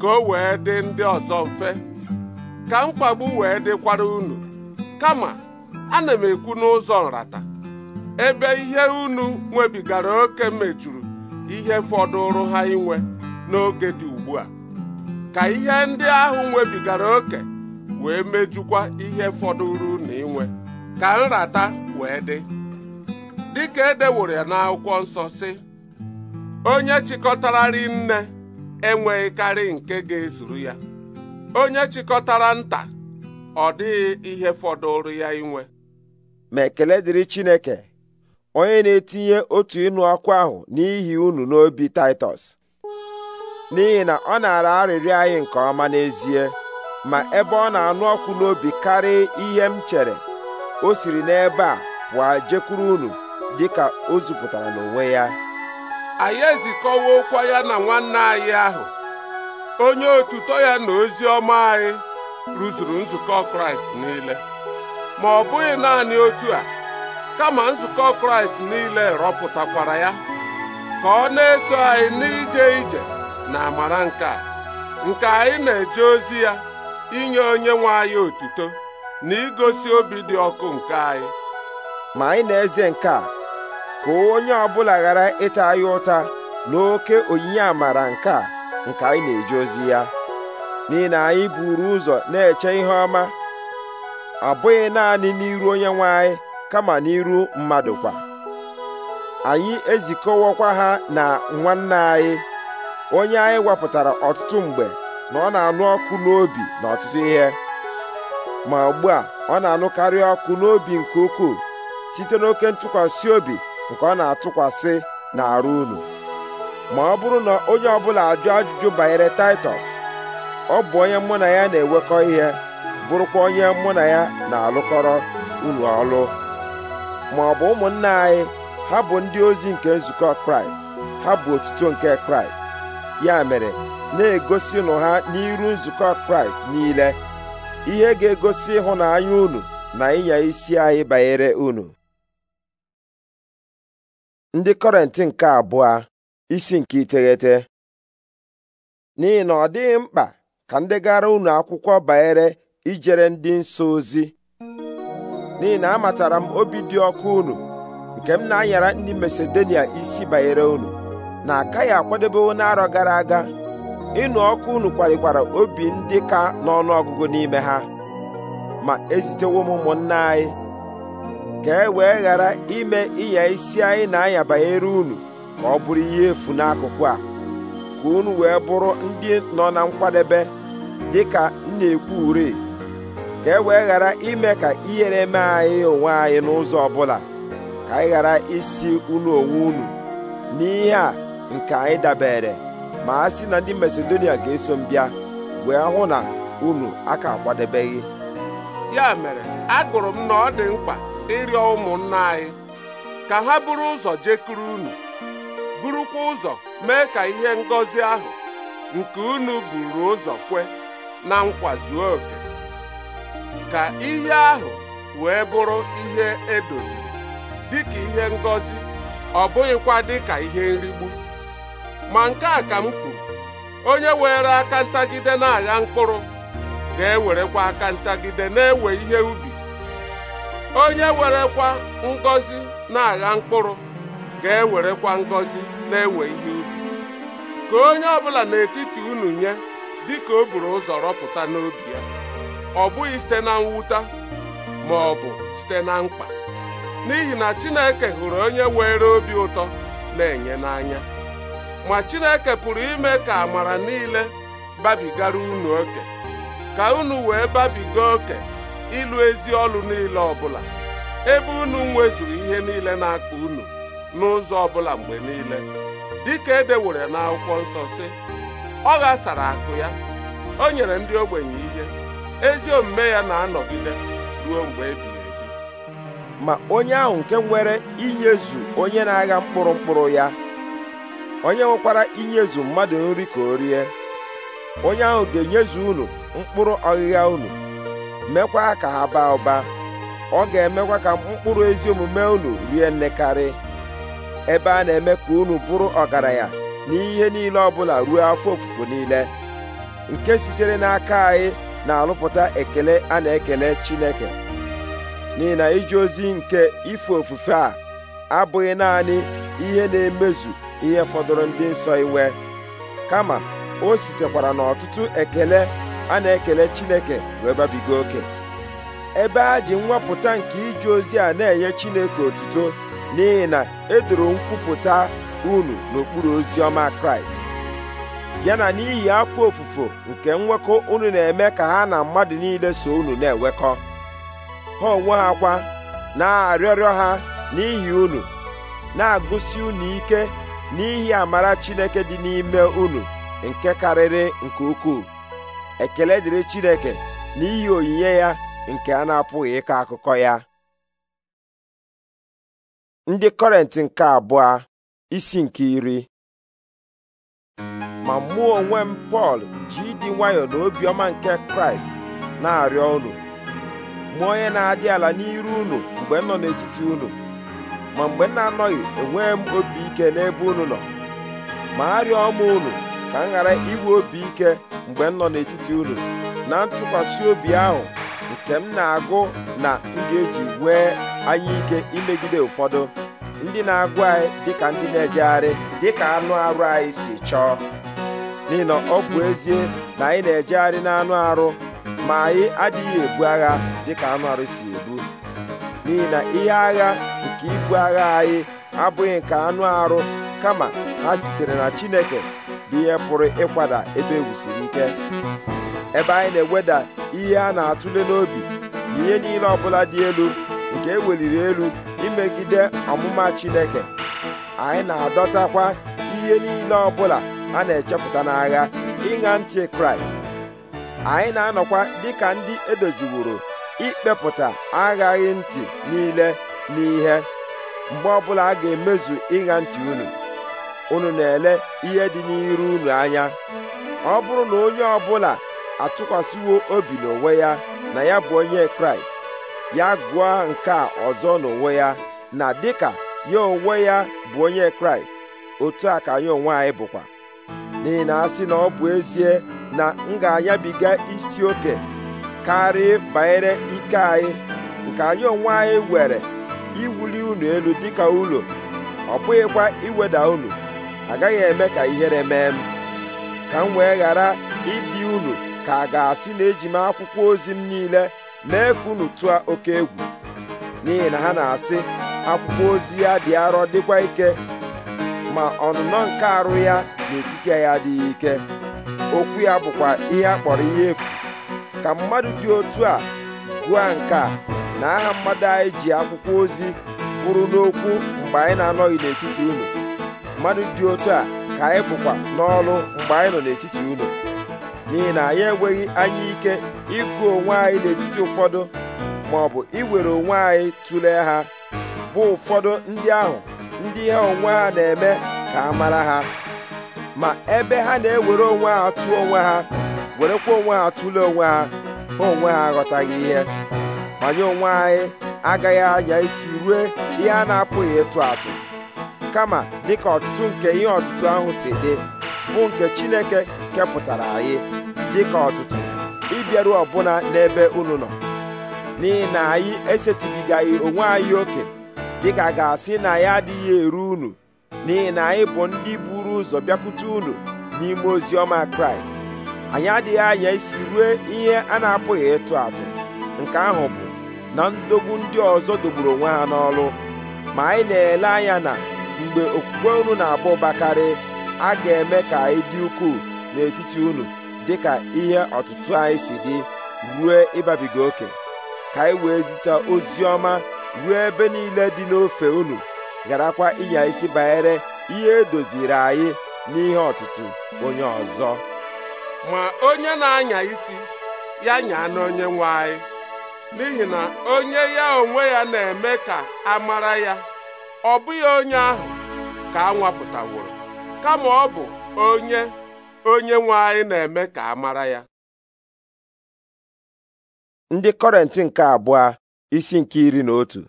S2: ka o wee dị ndị ọzọ mfe ka mkpagbu wee dịkwara unu kama ana m ekwu n'ụzọ nrata ebe ihe unu nwebigara oke mejuru ihe fọdụrụ ha inwe n'oge dị ugbu a ka ihe ndị ahụ nwebigara oke wee mejukwa ihe fọdụrụ unu inwe ka nrata wee dị dịka edeworo ya n'akwụkwọ nsọ si. onye chịkọtara nne enweghị karị nke ga-ezuru ya onye chịkọtara nta ọ dịghị ihe fọdụrụ ya inwe
S1: ma ekele dịrị Chineke onye na-etinye otu ịnụ ọkụ ahụ n'ihi unu n'obi Taịtọs n'ihi na ọ na-ara arịrịọ anyị nke ọma n'ezie ma ebe ọ na-anụ ọkụ n'obi karịa ihe m chere o siri n'ebe a pụọ jekwuru unu dịka o zupụtara n'onwe ya anyị ezikọwa ụkwa ya na nwanne anyị ahụ
S2: onye otuto ya na ozi ọma anyị rụzuru nzukọ kraịst niile ma ọ bụghị naanị otu a kama nzukọ kraịst niile rọpụtakwara ya ka ọ na-eso anyị n'ije ije na amara nke a nke anyị na-eje ozi ya inye onye nwe anyị otuto na igosi obi dị ọkụ nke anyị
S1: ma anyị na-eze nke a ka onye ọbụla ghara ịta anyị ụta n'oke onyinye amara nke a nke anyị na-eje ozi ya n'ihi na anyị buru ụzọ na-eche ihe ọma abụghị naanị n'iru onye nwe anyị kama n'iru mmadụ kwa anyị ezikọwọkwa ha na nwanne anyị onye anyị wepụtara ọtụtụ mgbe na ọ na-anụ ọkụ n'obi na ọtụtụ ihe ma ugbu a ọ na-anụkarị ọkụ n'obi nke ukwuu site n'oke ntụkwasị obi nke ọ na-atụkwasị n'arụ unu ma ọ bụrụ na onye ọbụla ajụ ajụjụ banyere taịtọs ọ bụ onye mụ na ya na-enwekọ ihe bụrụkwa onye mụ na ya na-alụkọrọ unu ọlụ ma ọ bụ ụmụnna anyị ha bụ ndị ozi nke nzukọ kraịst ha bụ otuto nke kraịst ya mere na-egosi nụ ha n'iru nzukọ kraịst niile ihe ga-egosi ịhụnanya unu na ịnya isi anyị banyere unu ndị kọrentị nke abụọ isi nke iteghete n'ihi na ọ dịghị mkpa ka ndị gara unu akwụkwọ banyere ijere ndị nsọ ozi n'ihi na amatara m obi dị ọkụ unu nke m na-anyara ndị Masedonia isi banyere unu na akaghị akwadebewo n'arọ gara aga ịnụ ọkụ unu kwalikwara obi ndị ka n'ọnụ ọgụgụ n'ime ha ma ezitewo m ụmụnna anyị ka e wee ghara ime ịnya isi anyị na-anya banyere unu ka ọ bụrụ ihe efu n'akụkụ a ka unu wee bụrụ ndị nọ na nkwadebe dị ka na-ekwu ure ka e wee ghara ime ka ihere mee anyị onwe anyị n'ụzọ ọbụla ka anyị ghara isi unu onwe unu n'ihe a nke anyị dabere ma a sị na ndị Masedonia ga-eso m bịa wee hụ na unu aka kwadebeghị ya
S2: mere agụrụ m na ọ dị mkpa ịrịọ ụmụnna anyị ka ha bụrụ ụzọ jekuru unu burukwa ụzọ mee ka ihe ngọzi ahụ nke unu buru ụzọ kwe na nkwa zuo oke ka ihe ahụ wee bụrụ ihe edoziri dịka ihe ngọzi ọ bụghịkwa dị ka ihe nrigbu ma nke a ka m kwuru onye were aka ntagide na-agha mkpụrụ ga-ewerekwa aka ntagide na-ewe ihe ubi onye werekwa ngozi na-agha mkpụrụ ga-ewerekwa ngozi na-ewe ihe ubi ka onye ọbụla n'etiti unu nye dịka o buru ụzọ rọpụta n'obi ya ọ bụghị site na mwụta ma ọ bụ site na mkpa n'ihi na Chineke hụrụ onye were obi ụtọ na-enye n'anya ma Chineke pụrụ ime ka amara niile babigara unu oke ka unu wee babiga oke ịlụ ezi ọlụ niile ọbụla ebe unu nwezuru ihe niile na-akpa unu n'ụzọ ọbụla mgbe niile dịka edewere n'akwụkwọ nsọ si ọ ghasara akụ ya o nyere ndị ogbenye ihe ezi omume ya na-anọgide
S1: ruo mgbe ebighị ebi ma onye ahụ nke nwere inyezu onye na-agha mkpụrụ mkpụrụ ya onye nwekwara inyezu mmadụ nri ka o rie onye ahụ ga-enyezu unu mkpụrụ ọghịgha unu mekwa ka ha baa ụba ọ ga-emekwa ka mkpụrụ ezi omume unu rie nnekarị ebe a na-eme ka unu bụrụ ọgaranya ihe niile ọbụla ruo afọ ofufo niile nke sitere n'aka anyị na-alụpụta ekele a na-ekele Chineke n'ihi na iji ozi nke ife ofufe a abụghị naanị ihe na-emezu ihe fọdụrụ ndị nsọ inwe kama o sitekwara n'ọtụtụ ekele a na-ekele Chineke wee babiga oke ebe a ji nwapụta nke ije ozi a na-enye Chineke otuto n'ihi na edoro nkwupụta unu n'okpuru ozi ọma Kraịst ya na n'ihi afọ ofufo nke nwekọ unu na-eme ka ha na mmadụ niile so unu na-enwekọ ha onwe ha kwa na-arịọrịọ ha n'ihi unu na-agụsi unu ike n'ihi amara Chineke dị n'ime unu nke karịrị nke ukwuu ekele dịrị Chineke n'ihi onyinye ya nke a na-apụghị ịkọ akụkọ ya ndị kọrentị nke abụọ isi nke iri ma mụọ onwe m Pọl ji ịdị nwayọ na obiọma nke Kraịst na-arịọ unu mụ onye na-adị ala n'iru unu mgbe nọ n'etiti unu ma mgbe m na-anọghị enwee m obi ike n'ebe unu nọ ma arịọ m unu ka m ghara inwe obi ike mgbe m nọ n'etiti ụlọ na ntụkwasị obi ahụ nke m na-agụ na m ga-eji wee anyị ike imegide ụfọdụ ndị na-agụ anyị dịka ndị na-ejegharị dịka anụ arụ anyị si chọọ n'ihi na ọ bụ ezie na anyị na-ejegharị n'anụ arụ ma anyị adịghị ebu agha dịka anụ arụ si ebu n'ihi na ihe agha nke ibu agha anyị abụghị nke anụ arụ kama ha sitere na Chineke bụ ihe pụrụ ịkwada ebe egwu ike ebe anyị na-eweda ihe a na-atụle n'obi na ihe niile ọbụla dị elu nke eweliri elu imegide ọmụma Chineke anyị na-adọtakwa ihe niile ọbụla a na-echepụta n'agha ịṅa ntị Kraịst anyị na-anọkwa dịka ndị edoziworo ikpepụta aghaghị ntị niile n'ihe mgbe ọbụla a ga-emezu ịṅa ntị unu unu na-ele ihe dị n'iru unu anya ọ bụrụ na onye ọbụla atụkwasịwo obi n'onwe ya na ya bụ onye kraịst ya gụọ nke a ọzọ n'onwe ya na dịka ya onwe ya bụ onye kraịst otu a ka anyị onwe anyị bụkwa n'ihi na asị na ọ bụ ezie na m ga-anyabiga isi oke karịa banyere ike anyị nke anyị onwe anyị were iwuli unu elu dịka ụlọ ọ bụghịkwa iweda unu agaghị eme ka ihere mee m ka m wee ghara ịdị unu ka a ga-asị na eji m akwụkwọ ozi m niile mee ka unu tụọ oke egwu n'ihi na ha na-asị akwụkwọ ozi ya dị arọ dịkwa ike ma ọnụnọ nke arụ ya n'etiti ya adịghị ike okwu ya bụkwa ihe a kpọrọ ihe efu ka mmadụ dị otu a gụọ nke a na aha mmadụ anyị ji akwụkwọ ozi bụrụ n'okwu mgbe anyị na-anọghị n'etiti unu mmadụ dị otu a ka anyị bụkwa n'ọrụ mgbe anyị nọ n'etiti unu n'ihi na anyị enweghị anya ike ịgụ onwe anyị n'etiti ụfọdụ ma ọ bụ iwere onwe anyị tụlee ha bụ ụfọdụ ndị ahụ ndị ha onwe ha na-eme ka a mara ha ma ebe ha na-ewere onwe ha atụ onwe ha werekwa onwe ha atụle onwe ha ha onwe ha aghọtaghị ihe manye onwe anyị agaghị anya isi rue ihe a na-apụghị ịtụ atụ kama dịka ọtụtụ nke ihe ọtụtụ ahụ si dị bụ nke Chineke kepụtara anyị dịka ọtụtụ ịbịaru ọbụna n'ebe unu nọ n'ihi na anyị esetịbigaghị onwe anyị oke dịka ga-asị na ya adịghị eru unu n'ihi na anyị bụ ndị buru ụzọ bịakwute unu n'ime ozi ọma Kraịst anyị adịghị anya isi rue ihe a na-apụghị ịtụ atụ nke ahụ bụ na ndogbu ndị ọzọ dogburu onwe ha n'ọrụ ma anyị na-ele anya na mgbe okwukwe unu na bakarị, a ga-eme ka anyị dị ukwuu n'etiti unu dịka ihe ọtụtụ anyị si dị ruo ịbabiga oke ka anyị wee zisa ozi ọma ruo ebe niile dị n'ofe unu gharakwa ịnya isi banyere ihe edoziri anyị n'ihe ọtụtụ onye ọzọ
S2: ma onye na-anya isi ya nyaa n'onye nwe anyị n'ihi na onye ya onwe ya na-eme ka a mara ya ọ bụghị onye ahụ ka a nwapụtaworo kama ọ bụ onye onye nwe
S1: na-eme ka a mara ya ndị kọrentị nke abụọ isi nke iri na otu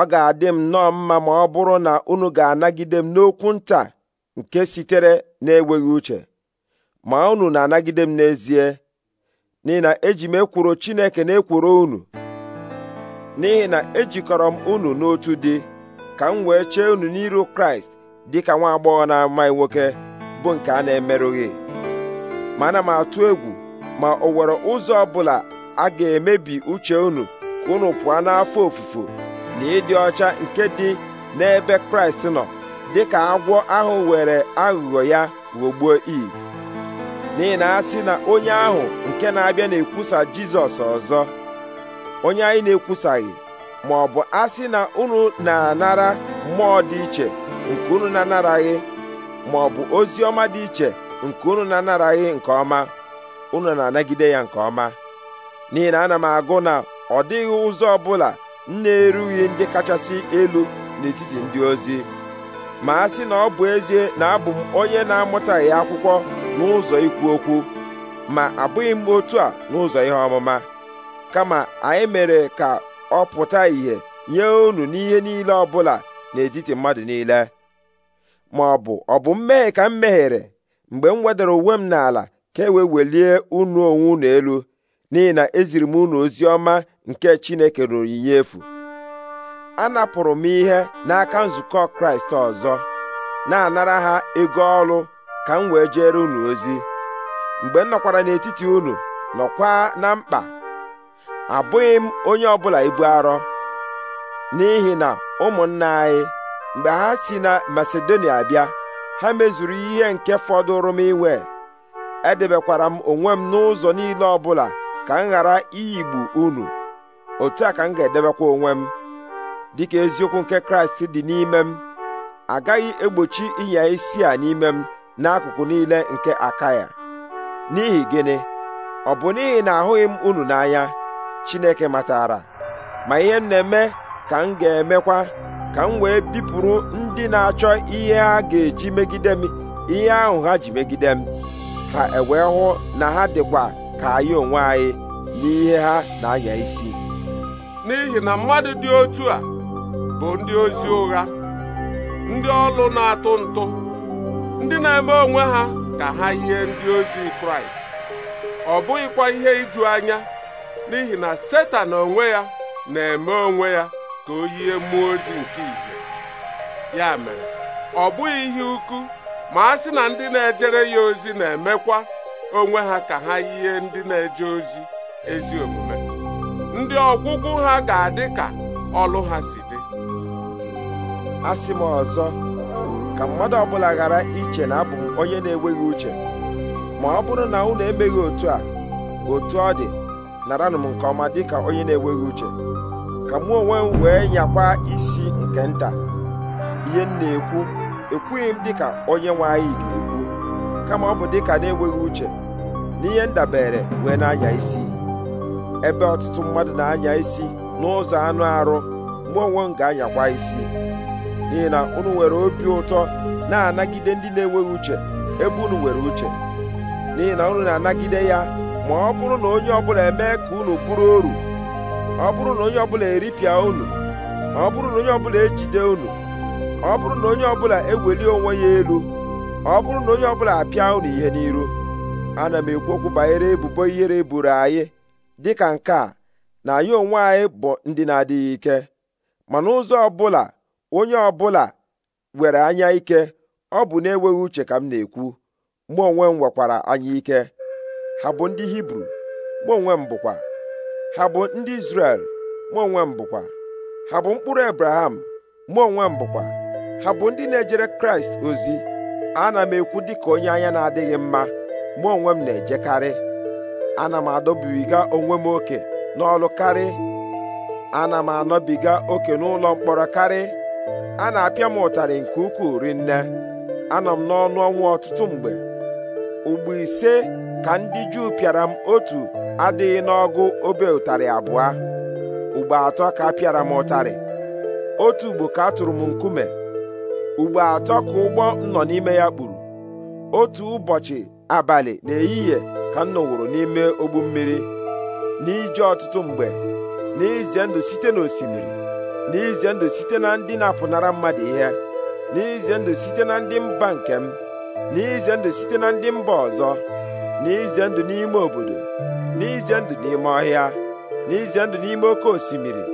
S1: ọ ga-adị m nnọọ mma ma ọ bụrụ na unu ga-anagide m n'okwu nta nke sitere na-enweghị uche ma unu na-anagide m n'ezie n'ihi na eji m ekworo Chineke na-ekworo unu n'ihi na ejikọrọ m unu n'otu dị ka m wee chee unu n'iru kraịst dị ka nwa agbọghọ na-amaghị nwoke bụ nke a na-emerụghị Mana m atụ egwu ma o nwere ụzọ ọbụla a ga-emebi uche unu ka unu pụọ n'afọ ofufo na ịdị ọcha nke dị n'ebe kraịst nọ dị ka agwọ ahụ were aghụghọ ya ghọgbuo iv n'ihi na a sị na onye ahụ nke na-abịa na-ekwusa jizọs ọzọ onye anyị na-ekwusaghị ma ọ bụ asị na unu na-anara mmụọ dị iche nke unu na-anaraghị ma ọ bụ ozi ọma dị iche nke unu na-anaraghị nke ọma unu na-anagide ya nke ọma n'ihi na ana m agụ na ọ dịghị ụzọ ọbụla m na-erughị ndị kachasị elu n'etiti ndị ozi ma a sị na ọ bụ ezie na abụ m onye na-amụtaghị akwụkwọ n'ụzọ ikwu okwu ma abụghị m otu a n'ụzọ ihe ọmụma kama anyị mere ka ọ pụta ìhè nye unu n'ihe niile ọbụla n'etiti mmadụ niile ma ọ bụ ọ bụ mmehie ka m mehiere mgbe m wedara uwe m n'ala ka e welie unu onwe unu elu n'ihi na eziri m unu ozi ọma nke Chineke ruru onyinye efu napụrụ m ihe n'aka nzukọ Kraịst ọzọ na-anara ha ego ọrụ ka m wee jere unu ozi mgbe m nọkwara n'etiti unu nọkwa na mkpa abụghị m onye ọbụla ibu arọ n'ihi na ụmụnna anyị mgbe ha si na Masedonia bịa ha mezuru ihe nke fọdụrụ m inwe edebekwara m onwe m n'ụzọ niile ọbụla ka m ghara iyigbu unu otu a ka m ga-edebekwa onwe m dịka eziokwu nke Kraịst dị n'ime m agaghị egbochi ịnya isi a n'ime m n'akụkụ niile nke aka ya n'ihi gịnị ọ bụ n'ihi na ahụghị m unu n'anya Chineke matara ma ihe m na-eme ka m ga-emekwa ka m wee bipụrụ ndị na-achọ ihe ha ga-eji megide m ihe ahụ ha ji megide m ha e wee hụ na ha dịkwa ka anyị onwe anyị n'ihe ha na-anya isi
S2: n'ihi na mmadụ dị otu a bụ ndị ozi ụgha ndị ọlụ na-atụ ntụ ndị na-eme onwe ha ka ha yie ndị ozi Kraịst ọ bụghịkwa ihe iju anya n'ihi na setan onwe ya na-eme onwe ya ka o yie mmụọ ozi nke ìhè ya mere ọ bụghị ihe ukwu ma a sị na ndị na-ejere ya ozi na-emekwa onwe ha ka ha yie ndị na-eje ozi ezi omume ndị ọgwụgwụ ha ga-adị ka ọlụ ha si dị
S1: asị m ọzọ ka mmadụ ọbụla ghara iche na abụ onye na-enweghị uche ma ọ bụrụ na unu emeghị otu a otu ọ dị naranụ m nke ọma dịka onye na-enweghị uche ka mụ onwe m wee nyakwa isi nke nta ihe m na-ekwu ekwughị m dịka onye nwe anyị ga-ekwu kama ọ bụ dịka na-enweghị uche na ihe ndabere wee na-anya isi ebe ọtụtụ mmadụ na-anya isi n'ụzọ anụ arụ mụ onwe m ga-anyakwa isi n'ihi na unu nwere obi ụtọ na-anagide ndị na-enweghị uche ebe unu nwere uche n'ihi na unu na-anagide ya ma ọ bụrụ na onye ọbụla emee ka unu bụrụ oru ọ bụrụ na onye ọbụla eripịa unu ọ bụrụ na onye ọbụla ejide unu ọ bụrụ na onye ọbụla ewelie onwe ya elu ọ bụrụ na onye ọbụla apịa unu ihe n'iru ana m ekwu okwu banyere ebubo ihere eburu anyị dịka nke a na anyị onwe anyị bụ ndị na-adịghị ike ma n'ụzọ ọbụla onye ọbụla were anya ike ọ bụ na-enweghị uche ka m na-ekwu mụ onwe m nwekwara anya ike ha bụ ndị hibru mụ onwe m bụkwa ha bụ ndị izrel mụ onwe m bụkwa ha bụ mkpụrụ abraham mụ onwe m bụkwa ha bụ ndị na-ejere kraịst ozi ana m ekwu dị ka onye anya na-adịghị mma mụ onwe m na-ejekarị ana m adọbiga onwe m oke n'ọlụ karị ana m anọbiga oke n'ụlọ mkpọrọ karị a na-apịa m ụtarị nke ukwuu rinne anọ m n'ọnụ ọnwụ ọtụtụ mgbe ugbo ise ka ndị Juu pịara m otu adịghị n'ọgụ obe ụtarị abụọ ugbo atọ ka a pịara m ụtarị otu ugbo ka tụrụ m nkume ugbo atọ ka ụgbọ m nọ n'ime ya kpuru otu ụbọchị abalị na-eyi na-ehihie ka m nọwụrụ n'ime ogbu mmiri n'ije ọtụtụ mgbe n'ize ndụ site n'osimiri n'ize ndụ site na ndị na-apụnara mmadụ ihe n'ize ndụ site na ndị mba nke m n'ize ndụ site na ndị mba ọzọ n'ize ndụ n'ime obodo n'ize ndụ n'ime ọhịa n'ize ndụ n'ime oke osimiri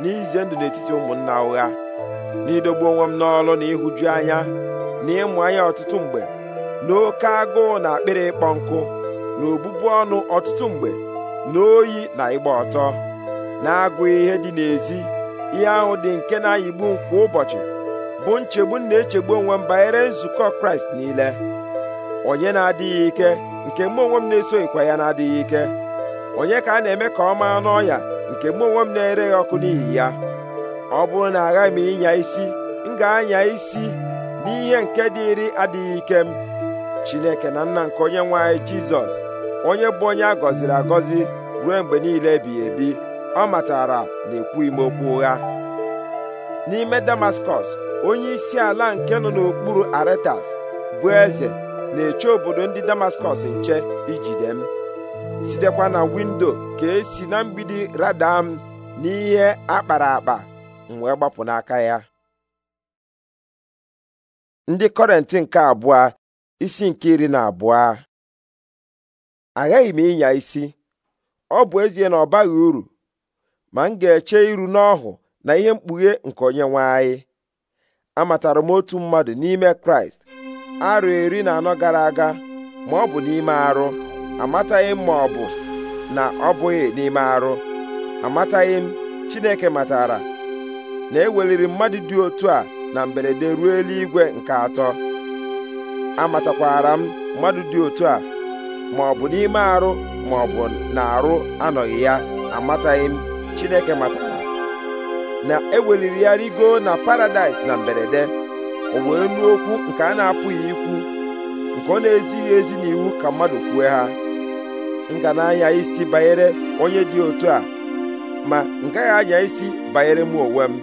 S1: n'ize ndụ n'etiti ụmụnna ụgha n'idogbu onwe m n'ọlụ na ịhụju anya na ịmụ anya ọtụtụ mgbe n'oke agụụ na akpịrị ịkpọ nkụ na obụbu ọnụ ọtụtụ mgbe na oyi na ịgba ọtọ na agụ ihe dị n'ezi ihe ahụ dị nke na-ayigbu kwa ụbọchị bụ nchegbu m na-echegbu onwe m banyere nzukọ Kraịst niile onye na-adịghị ike nke mụ onwe m na-esoghịkwa ya na-adịghị ike onye ka a na-eme ka ọ maa n'ọya nke mụ onwe m na-ereghị ọkụ n'ihi ya ọ bụrụ na agaghị m ịnya isi m ga-anya isi n'ihe nke dịịrị adịghị ike m Chineke na nna nke onye nwe anyị Jizọs onye bụ onye a gọziri agọzi ruo mgbe niile ebighị ebi ọ matara na ekwughị m okwu ụgha n'ime Damaskọs onye isi ala nke nọ n'okpuru Aretas bụ eze na-eche obodo ndị damaskọs nche ijide m sitekwa na windo ka esi na mgbidi rada m n'ihe akpara akpa m wee gbapụ n'aka ya ndị kọrentị nke abụọ isi nke iri na abụọ aghaghị m ịnya isi ọ bụ ezie na ọ baghị uru ma m ga-eche iru n'ọhụ na ihe mkpughe nke onye nwe anyị amatara m otu mmadụ n'ime kraịst arụ iri na anọ gara aga ma ọ bụ n'ime arụ amataghị m ma ọ bụ na ọ bụghị n'ime arụ amataghị Chineke matara na eweliri mmadụ dị otu a na mberede ruo eluigwe nke atọ amatakwara m mmadụ dị otu a ma ọ bụ n'ime arụ ma ọ bụ na arụ anọghị ya amataghị m Chineke matara na eweliri ya rigo na paradaịs na mberede o wee nụ okwu nke a na-apụghị ikwu nke ọ na-ezighị ezi n'iwu ka mmadụ kwue ha ngananya isi banyere onye dị otu a ma m gaghị anya isi banyere m onwe m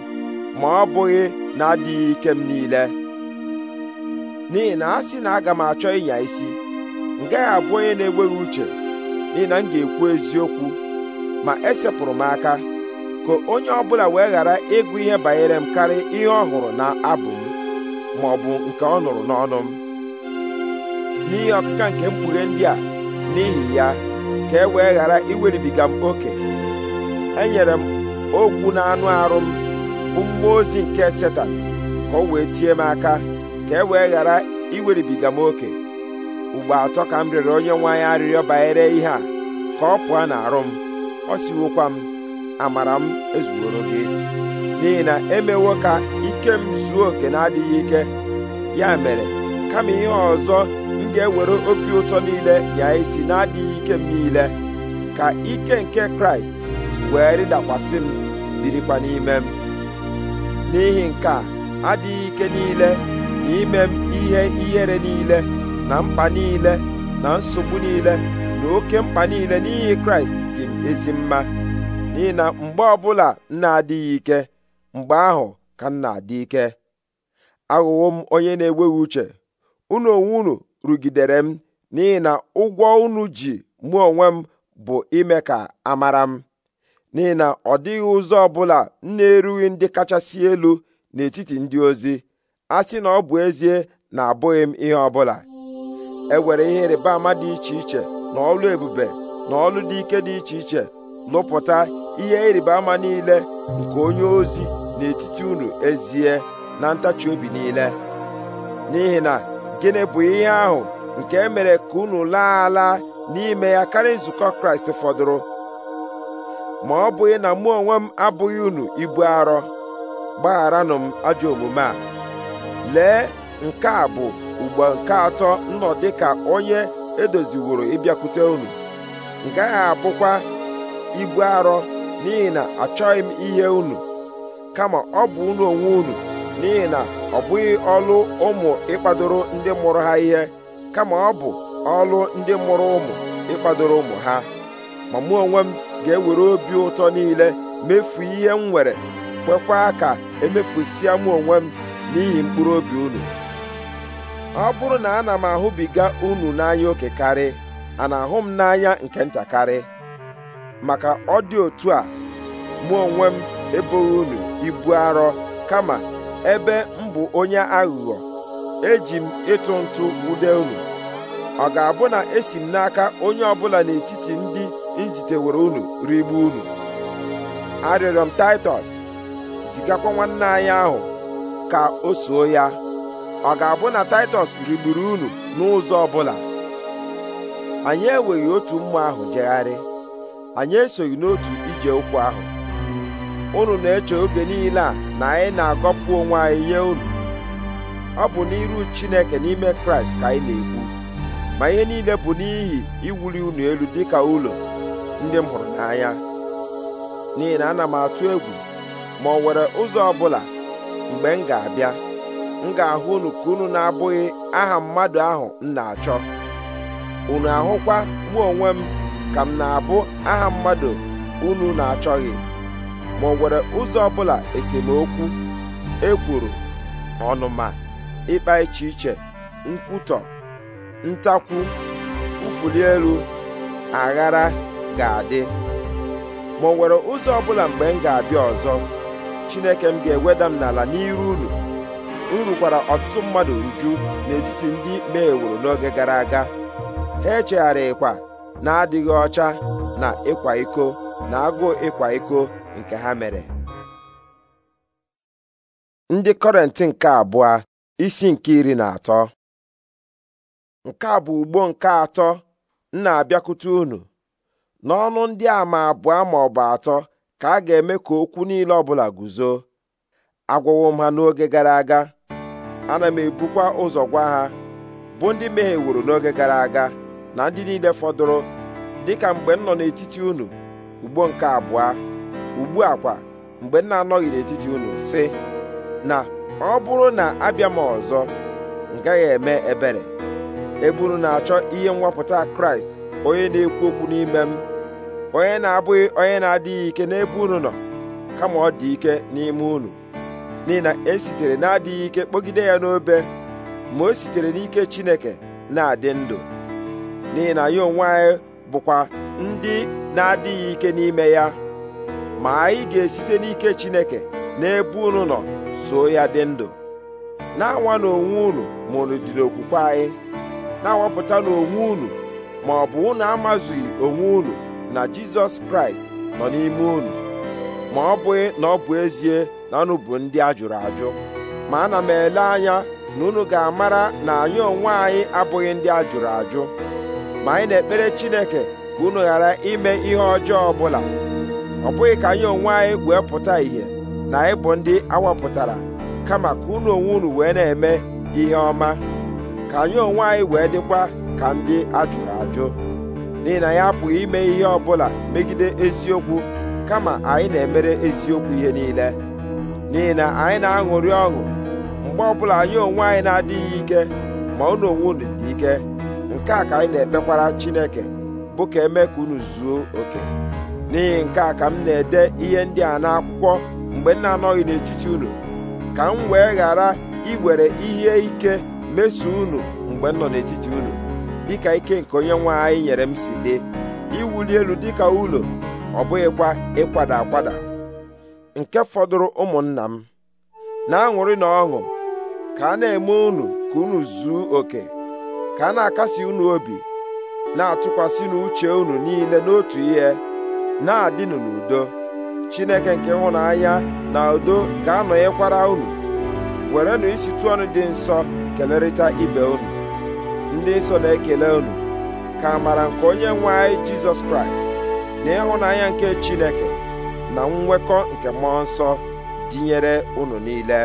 S1: ma ọ bụghị na-adịghị ike m niile n'ihi na a sị na aga m achọ ịnya isi m gaghị abụ onye na-enweghị uche n'ihi na m ga-ekwu eziokwu ma esepụrụ m aka ka onye ọ bụla wee ghara ịgụ ihe banyere m karịa ihe ọ hụrụ na abụ m ma ọ bụ nke ọ nụrụ n'ọnụ m n'ihi ọkụka nke mkpughe ndị a n'ihi ya ka e wee ghara iweribiga m oke enyere m ogwu na anụ arụ m bụ mmụọ ozi nke setan ka ọ wee tie m aka ka e wee ghara iweribiga m oke ugbo atọ ka m rere onye nwe arịrịọ banyere ihe a ka ọ pụọ n'arụ m ọ siwokwa m amara m ezuworo gị n'ihi na emewo ka ike m zuo oke na-adịghị ike ya mere kama ihe ọzọ m ga-ewere obi ụtọ niile ya isi na-adịghị ike m niile ka ike nke kraịst wee rịdakwasị m birikwa n'ime m n'ihi nke a adịghị ike niile na ime m ihe ihere niile na mkpa niile na nsogbu niile na oke mkpa niile n'ihi kraịst dị m ezi mma n'ihi na mgbe ọbụla m na-adịghị ike mgbe ahụ ka m na-adị ike aghụghọ m onye na-enweghị uche unu onwe unu rugidere m n'ihi na ụgwọ unu ji mụ onwe m bụ ime ka amara m n'ihi na ọ dịghị ụzọ ọbụla m na-erughị ndị kachasị elu n'etiti ndị ozi a sị na ọ bụ ezie na abụghị m ihe ọbụla e were ihe ịrịba ama dị iche iche na ọlụ ebube na ọlụ dị ike dị iche iche lụpụta ihe ịrịba ama niile nke onye ozi n'etiti unu ezie na ntachi obi niile n'ihi na gịnị bụ ihe ahụ nke e mere ka unu laa ala n'ime ya karịa nzukọ kraịst fọdụrụ ma ọ bụghị na mụ onwe m abụghị unu ibu arọ gbagharanụ m ajọ omume a lee nke a bụ ugbo nke atọ nnọ dịka onye edoziworo ịbịakwute unu m gaghị abụkwa ibu arọ n'ihi na achọghị m ihe unu kama ọ bụ unu onwe unu n'ihi na ọ bụghị ọlụ ụmụ ịkpadoro ndị mụrụ ha ihe kama ọ bụ ọlụ ndị mụrụ ụmụ ịkpadoro ụmụ ha ma mụ onwe m ga-ewere obi ụtọ niile mefu ihe m nwere kwekwa ka emefusịa mụ onwe m n'ihi mkpụrụ obi unu ọ bụrụ na ana m ahụbiga unu n'anya oke karị a na-ahụ m n'anya nke ntakarị maka ọ dị otu a mụ onwe m eboghị unu ibu arọ kama ebe m bụ onye aghụghọ eji m ịtụ ntụ ude unu ọ ga-abụ na esi m n'aka onye ọbụla n'etiti ndị njitewere unu rigbu unu arịọrọ m taịtọs zigakwa nwanne anyị ahụ ka o soo ya ọ ga-abụ na taịtọs rigburu unu n'ụzọ ọbụla anyị enweghị otu mmụọ ahụ jegharị anyị esoghị n'otu ije ụkwụ ahụ unu na-eche oge niile a na anyị na-agọpụ onwe anyị nye unu ọ bụ n'iru Chineke n'ime Kraịst ka anyị na-ekwu ma ihe niile bụ n'ihi iwuli unu elu dịka ụlọ ndị m hụrụ n'anya n'ihi na ana m atụ egwu ma ọ nwere ụzọ ọbụla mgbe m ga-abịa m ga-ahụ unu ka unu na-abụghị aha mmadụ ahụ m na-achọ unu ahụkwa mụ onwe m ka m na-abụ aha mmadụ unu na-achọghị ma ọ nwere ụzọ ọbụla esemokwu ekworo ọnụma ịkpa iche iche nkwutọ ntakwu ụfụli elu aghara ga-adị ma ọ nwere ụzọ ọbụla mgbe m ga-abịa ọzọ Chineke m ga-eweda m n'ala n'iru unu m rukwara ọtụtụ mmadụ uju n'etiti ndị meworo n'oge gara aga ha echegharịkwa na adịghị ọcha na ịkwa iko na agụụ ịkwa iko nke ha mere ndị kọrentị nke abụọ isi nke iri na atọ nke a bụ ugbo nke atọ m na-abịakwute unu n'ọnụ ndị ama abụọ ma ọ bụ atọ ka a ga-eme ka okwu niile ọbụla guzo agwawo m ha n'oge gara aga ana m ebukwa ụzọ gwa ha bụ ndị wuru n'oge gara aga na ndị niile fọdụrụ dịka mgbe m nọ n'etiti unu ugbo nke abụọ ugbu a kwa mgbe m na-anọghị n'etiti unu sị na ọ bụrụ na abịa m ọzọ m gaghị eme ebere eburu na-achọ ihe nwapụta kraịst onye na-ekwu okwu n'ime m onye na-abụghị onye na-adịghị ike n'ebe unu nọ kama ọ dị ike n'ime unu n'ihi na esitere na-adịghị ike kpọgide ya n'obe ma o sitere n'ike chineke na-adị ndụ n'ihi na ya onwe anyị bụkwa ndị na-adịghị ike n'ime ya ma anyị ga-esite n'ike Chineke n'ebe unu nọ so ya dị ndụ na-anwa n'onwe unu ma unu dị n'okwukwe anyị na-awapụta n'onwe unu ma ọ bụ unu amazughị onwe unu na Jizọs Kraịst nọ n'ime unu ma ọ bụghị na ọ bụ ezie na unu bụ ndị ajụrụ ajụ ma ana m ele anya na unu ga-amara na anyị onwe anyị abụghị ndị ajụrụ ajụ ma anyị na-ekpere Chineke ka unu ghara ime ihe ọjọọ ọbụla ọ bụghị ka anyị onwe anyị wee pụta ìhè na anyị bụ ndị awapụtara kama ka unu onwe unu wee na-eme ihe ọma ka anyị onwe anyị wee dịkwa ka ndị ajụrụ ajụ n'ihi na ya apụghị ime ihe ọbụla megide eziokwu kama anyị na-emere eziokwu ihe niile n'ihi na anyị na-aṅụrị ọṅụ mgbe ọbụla anyị onwe anyị na-adịghị ike ma unu onwe unu dị ike nke a ka anyị na-ekpekwara Chineke bụ ka eme ka unu zuo oke n'ihi nke a ka m na-ede ihe ndị a n'akwụkwọ mgbe m na-anọghị n'etiti unu ka m wee ghara iwere ihe ike meso unu mgbe m nọ n'etiti unu dịka ike nke onye nwe anyị nyere m si dị iwuli elu dịka ụlọ ọ bụghịkwa ịkwada akwada nke fọdụrụ ụmụnna m na-aṅụrị na ọṅụ ka a na-eme unu ka unu zuo oke ka a na-akasi unu obi na-atụkwasị n'uche unu niile n'otu ihe na-adịnụ n'udo chineke nke hụnanya na udo ga-anọnyekwara unu werenụ isitụ ọnụ dị nsọ kelerịta ibe unu ndị nsọ na-ekele unu ka amara nke onye nwe anyị jizọs kraịst na ịhụnanya nke chineke na nnwekọ nke mmụọ nsọ dịnyere unu niile